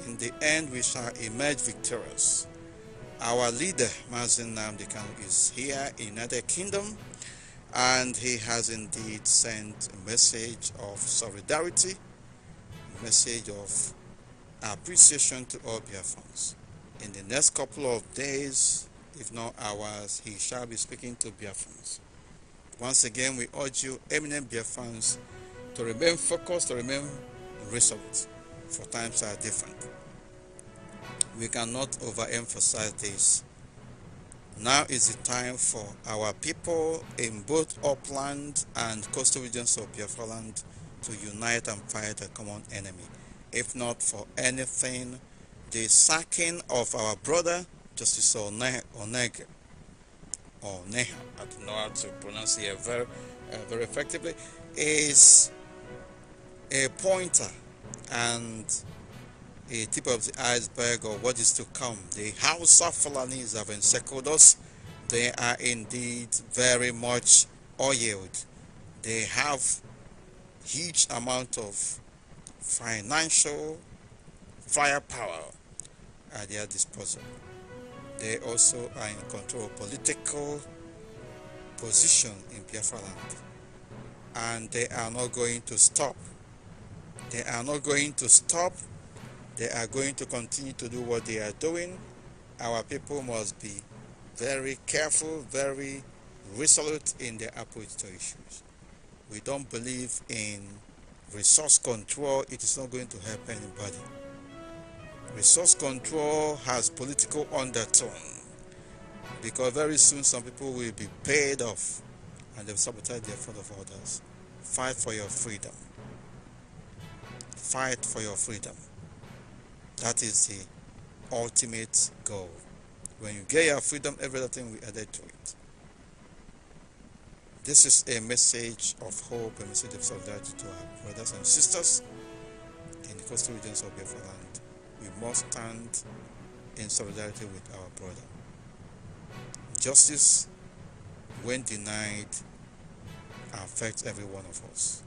In the end, we shall emerge victorious our leader, Mazin Namdi is here in United Kingdom and he has indeed sent a message of solidarity, a message of appreciation to all Biafrans. In the next couple of days, if not hours, he shall be speaking to Biafrans. Once again, we urge you, eminent Biafrans, to remain focused, to remain resolute, for times are different we cannot overemphasize this. Now is the time for our people in both upland and coastal regions of Biafraland to unite and fight a common enemy. If not for anything, the sacking of our brother, Justice Oneg, Oneg or Neha, I don't know how to pronounce it uh, very, uh, very effectively, is a pointer and a tip of the iceberg of what is to come. The House of Fulanis have encircled us. They are indeed very much oiled. They have huge amount of financial firepower at their disposal. They also are in control of political position in Biafra land. And they are not going to stop. They are not going to stop they are going to continue to do what they are doing. Our people must be very careful, very resolute in their approach to issues. We don't believe in resource control. It is not going to help anybody. Resource control has political undertone because very soon some people will be paid off and they'll sabotage the effort of others. Fight for your freedom. Fight for your freedom. That is the ultimate goal. When you get your freedom, everything will add to it. This is a message of hope, a message of solidarity to our brothers and sisters in the coastal regions of Biafra We must stand in solidarity with our brother. Justice, when denied, affects every one of us.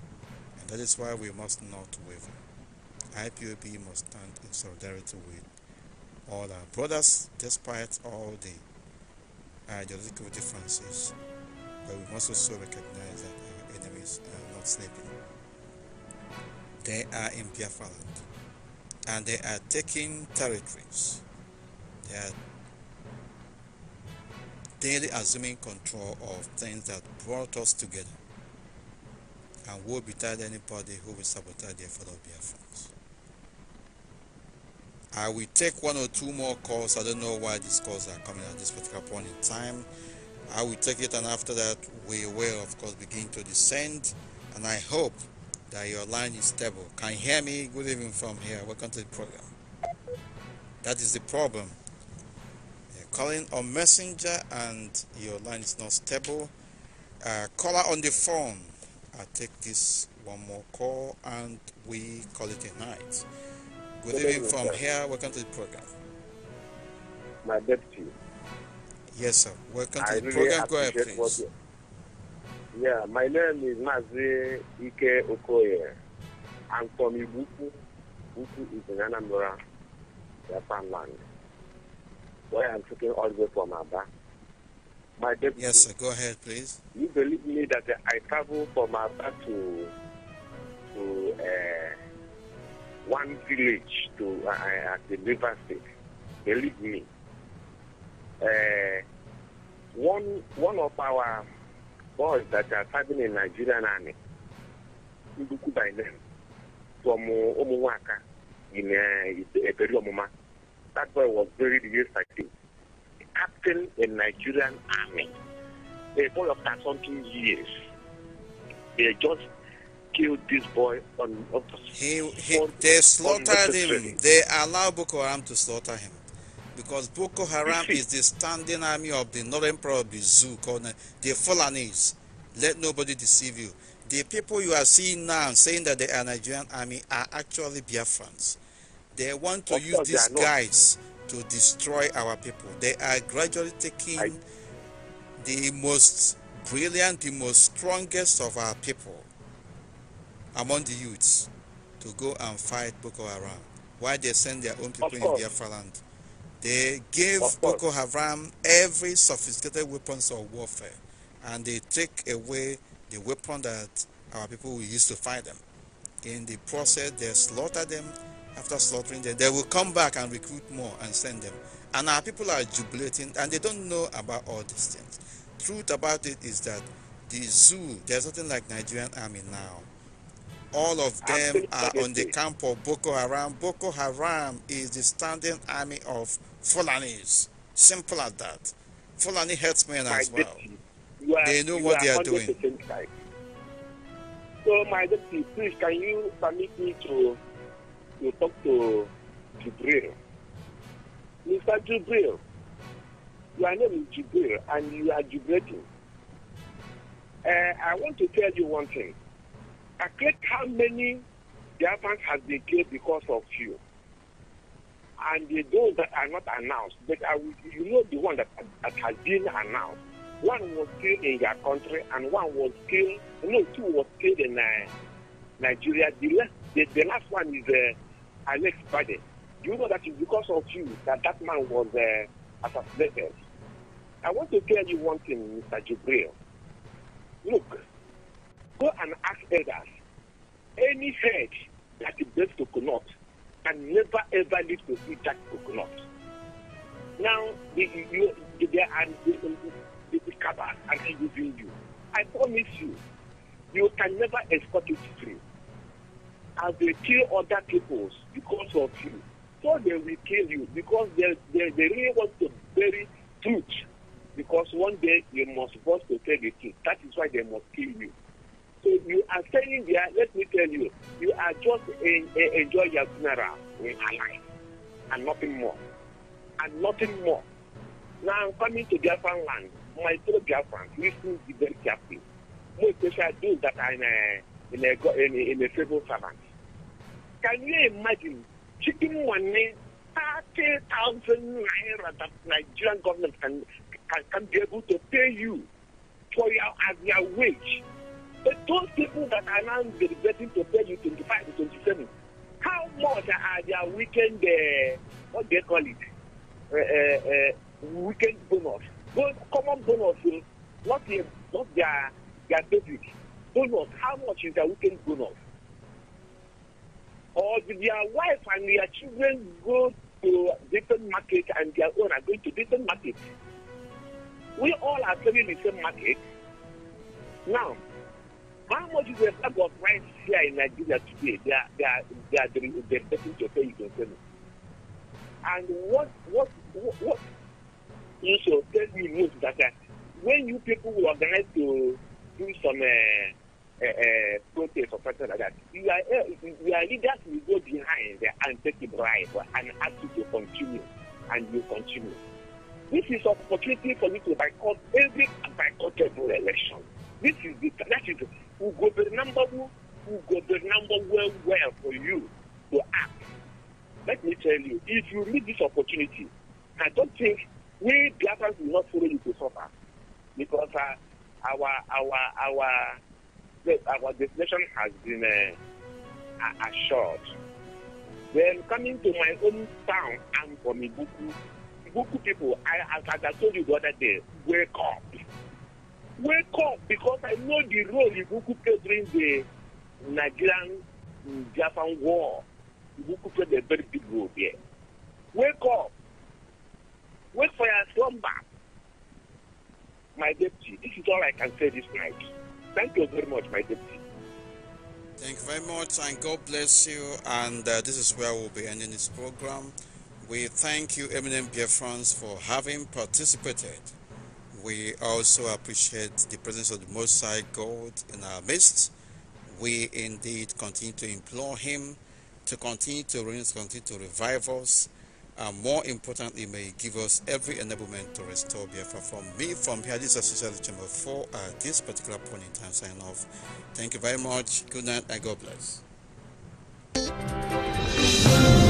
And that is why we must not waver. IPOB must stand in solidarity with all our brothers, despite all the ideological differences. But we must also recognize that our enemies are not sleeping. They are in Biafra land, and they are taking territories. They are daily assuming control of things that brought us together and be betide anybody who will sabotage the effort of Biafrans. I will take one or two more calls. I don't know why these calls are coming at this particular point in time. I will take it, and after that, we will, of course, begin to descend. And I hope that your line is stable. Can you hear me? Good evening from here. Welcome to the program. That is the problem. You're calling on Messenger and your line is not stable. Uh, caller on the phone. I take this one more call and we call it a night. Good evening from here. Welcome to the program. My deputy. Yes, sir. Welcome I to the really program. Go ahead, please. You... Yeah, my name is Mazi Ike Okoye. I'm from Ibuku. Ibuku is in Anambra, Japan land. Where I'm taking all the way from Aba. My deputy. Yes, sir. Go ahead, please. You believe me that I travel from Aba to to. Uh, one village to uh, at uh, the river state. Believe me. Uh, one one of our boys that are serving in Nigerian army, Nduku by name, from Omuwaka in Eberi uh, Omuma. That boy was buried yesterday. The captain in Nigerian army, a boy of 13 years, they just killed this boy on, on the he, he, They slaughtered him. They allowed Boko Haram to slaughter him. Because Boko Haram is the standing army of the northern part of the zoo called the Fulanese. Let nobody deceive you. The people you are seeing now saying that they are Nigerian army are actually Biafrans. They want to of use these guys to destroy our people. They are gradually taking I... the most brilliant, the most strongest of our people among the youths to go and fight Boko Haram while they send their own people in Biafra land. They gave Boko Haram every sophisticated weapons of warfare and they take away the weapon that our people will use to fight them. In the process, they slaughter them. After slaughtering them, they will come back and recruit more and send them. And our people are jubilating and they don't know about all these things. Truth about it is that the zoo, there's nothing like Nigerian army now all of them are on the camp of Boko Haram. Boko Haram is the standing army of Fulanis. Simple as that. Fulani herdsmen as well. Are, they know what are they are doing. So, my deputy, please, can you permit me to, to talk to Jibril? Mr. Jibril, your name is Jibril, and you are Jibrating. Uh, eh, I want to tell you one thing. calculate how many Biafrans has been killed because of you. And the, those that are not announced, but I will, you know the one that, that has been announced. One was killed in your country, and one was killed, no, two was killed in uh, Nigeria. The last, the, the last one is uh, Alex Bade. You know that it's because of you that that man was uh, assassinated. I want to tell you one thing, Mr. Jibril. Look, any head that is coconut can never ever live to eat that coconut. Now, the, you, the, the, the, the, the they and using you. I promise you, you can never escape it free. As they kill other peoples because of you, so they will kill you because they, they, they really want to bury truth. Because one day you must force to tell the truth. That is why they must kill you. So you are staying there, let me tell you, you are just enjoy your funeral in alive and nothing more. And nothing more. Now I'm coming to Biafran land. My fellow Biafrans, listen be very carefully. More especially those that uh, are in a, in a, in a, in a civil servant. Can you imagine chipping money, 30,000 naira that Nigerian government can, can, can be able to pay you for your, as your wage? But those people that are now regretting to pay you 25 to 27, how much are they weekend, uh, what do they call it? Uh, uh, uh weekend bonus. Those common bonus, not, a, not their, their basic bonus. How much is their weekend bonus? Or did their wife and their children go to different market and their own are going to different market. We all are selling the same market. Now, how much is the bag of rice here in Nigeria today? They are they are they are they are betting to pay you can sell it. And what what what, what you should tell me most that uh, when you people will organize to do some uh, uh, uh, protest or something like that, you are uh, you are leaders will go behind and take a bribe and ask you to continue and you continue. This is opportunity for you to boycott every every election. This is the that is who number who number well well for you to act. Let me tell you, if you need this opportunity, I don't think we Biafrans will not follow you to suffer because uh, our our our our destination has been uh, assured. Then coming to my own town, I'm from Ibuku. Ibuku people, I, as I told you the other day, wake up wake up because I know the role Ibuku played during the Nigerian mm, Japan war. Ibuku played a very big role there. Wake up. Wake for your slumber. My deputy, this is all I can say this night. Thank you very much, my deputy. Thank you very much, and God bless you. And uh, this is where we'll be ending this program. We thank you, Eminem Biafrans, for having participated. We also appreciate the presence of the Most High God in our midst. We indeed continue to implore Him to continue to reign, continue to revive us, and more importantly, may He give us every enablement to restore Biafra. From me, from here, this is Associated Chamber 4 at this particular point in time. Sign off. Thank you very much. Good night and God bless.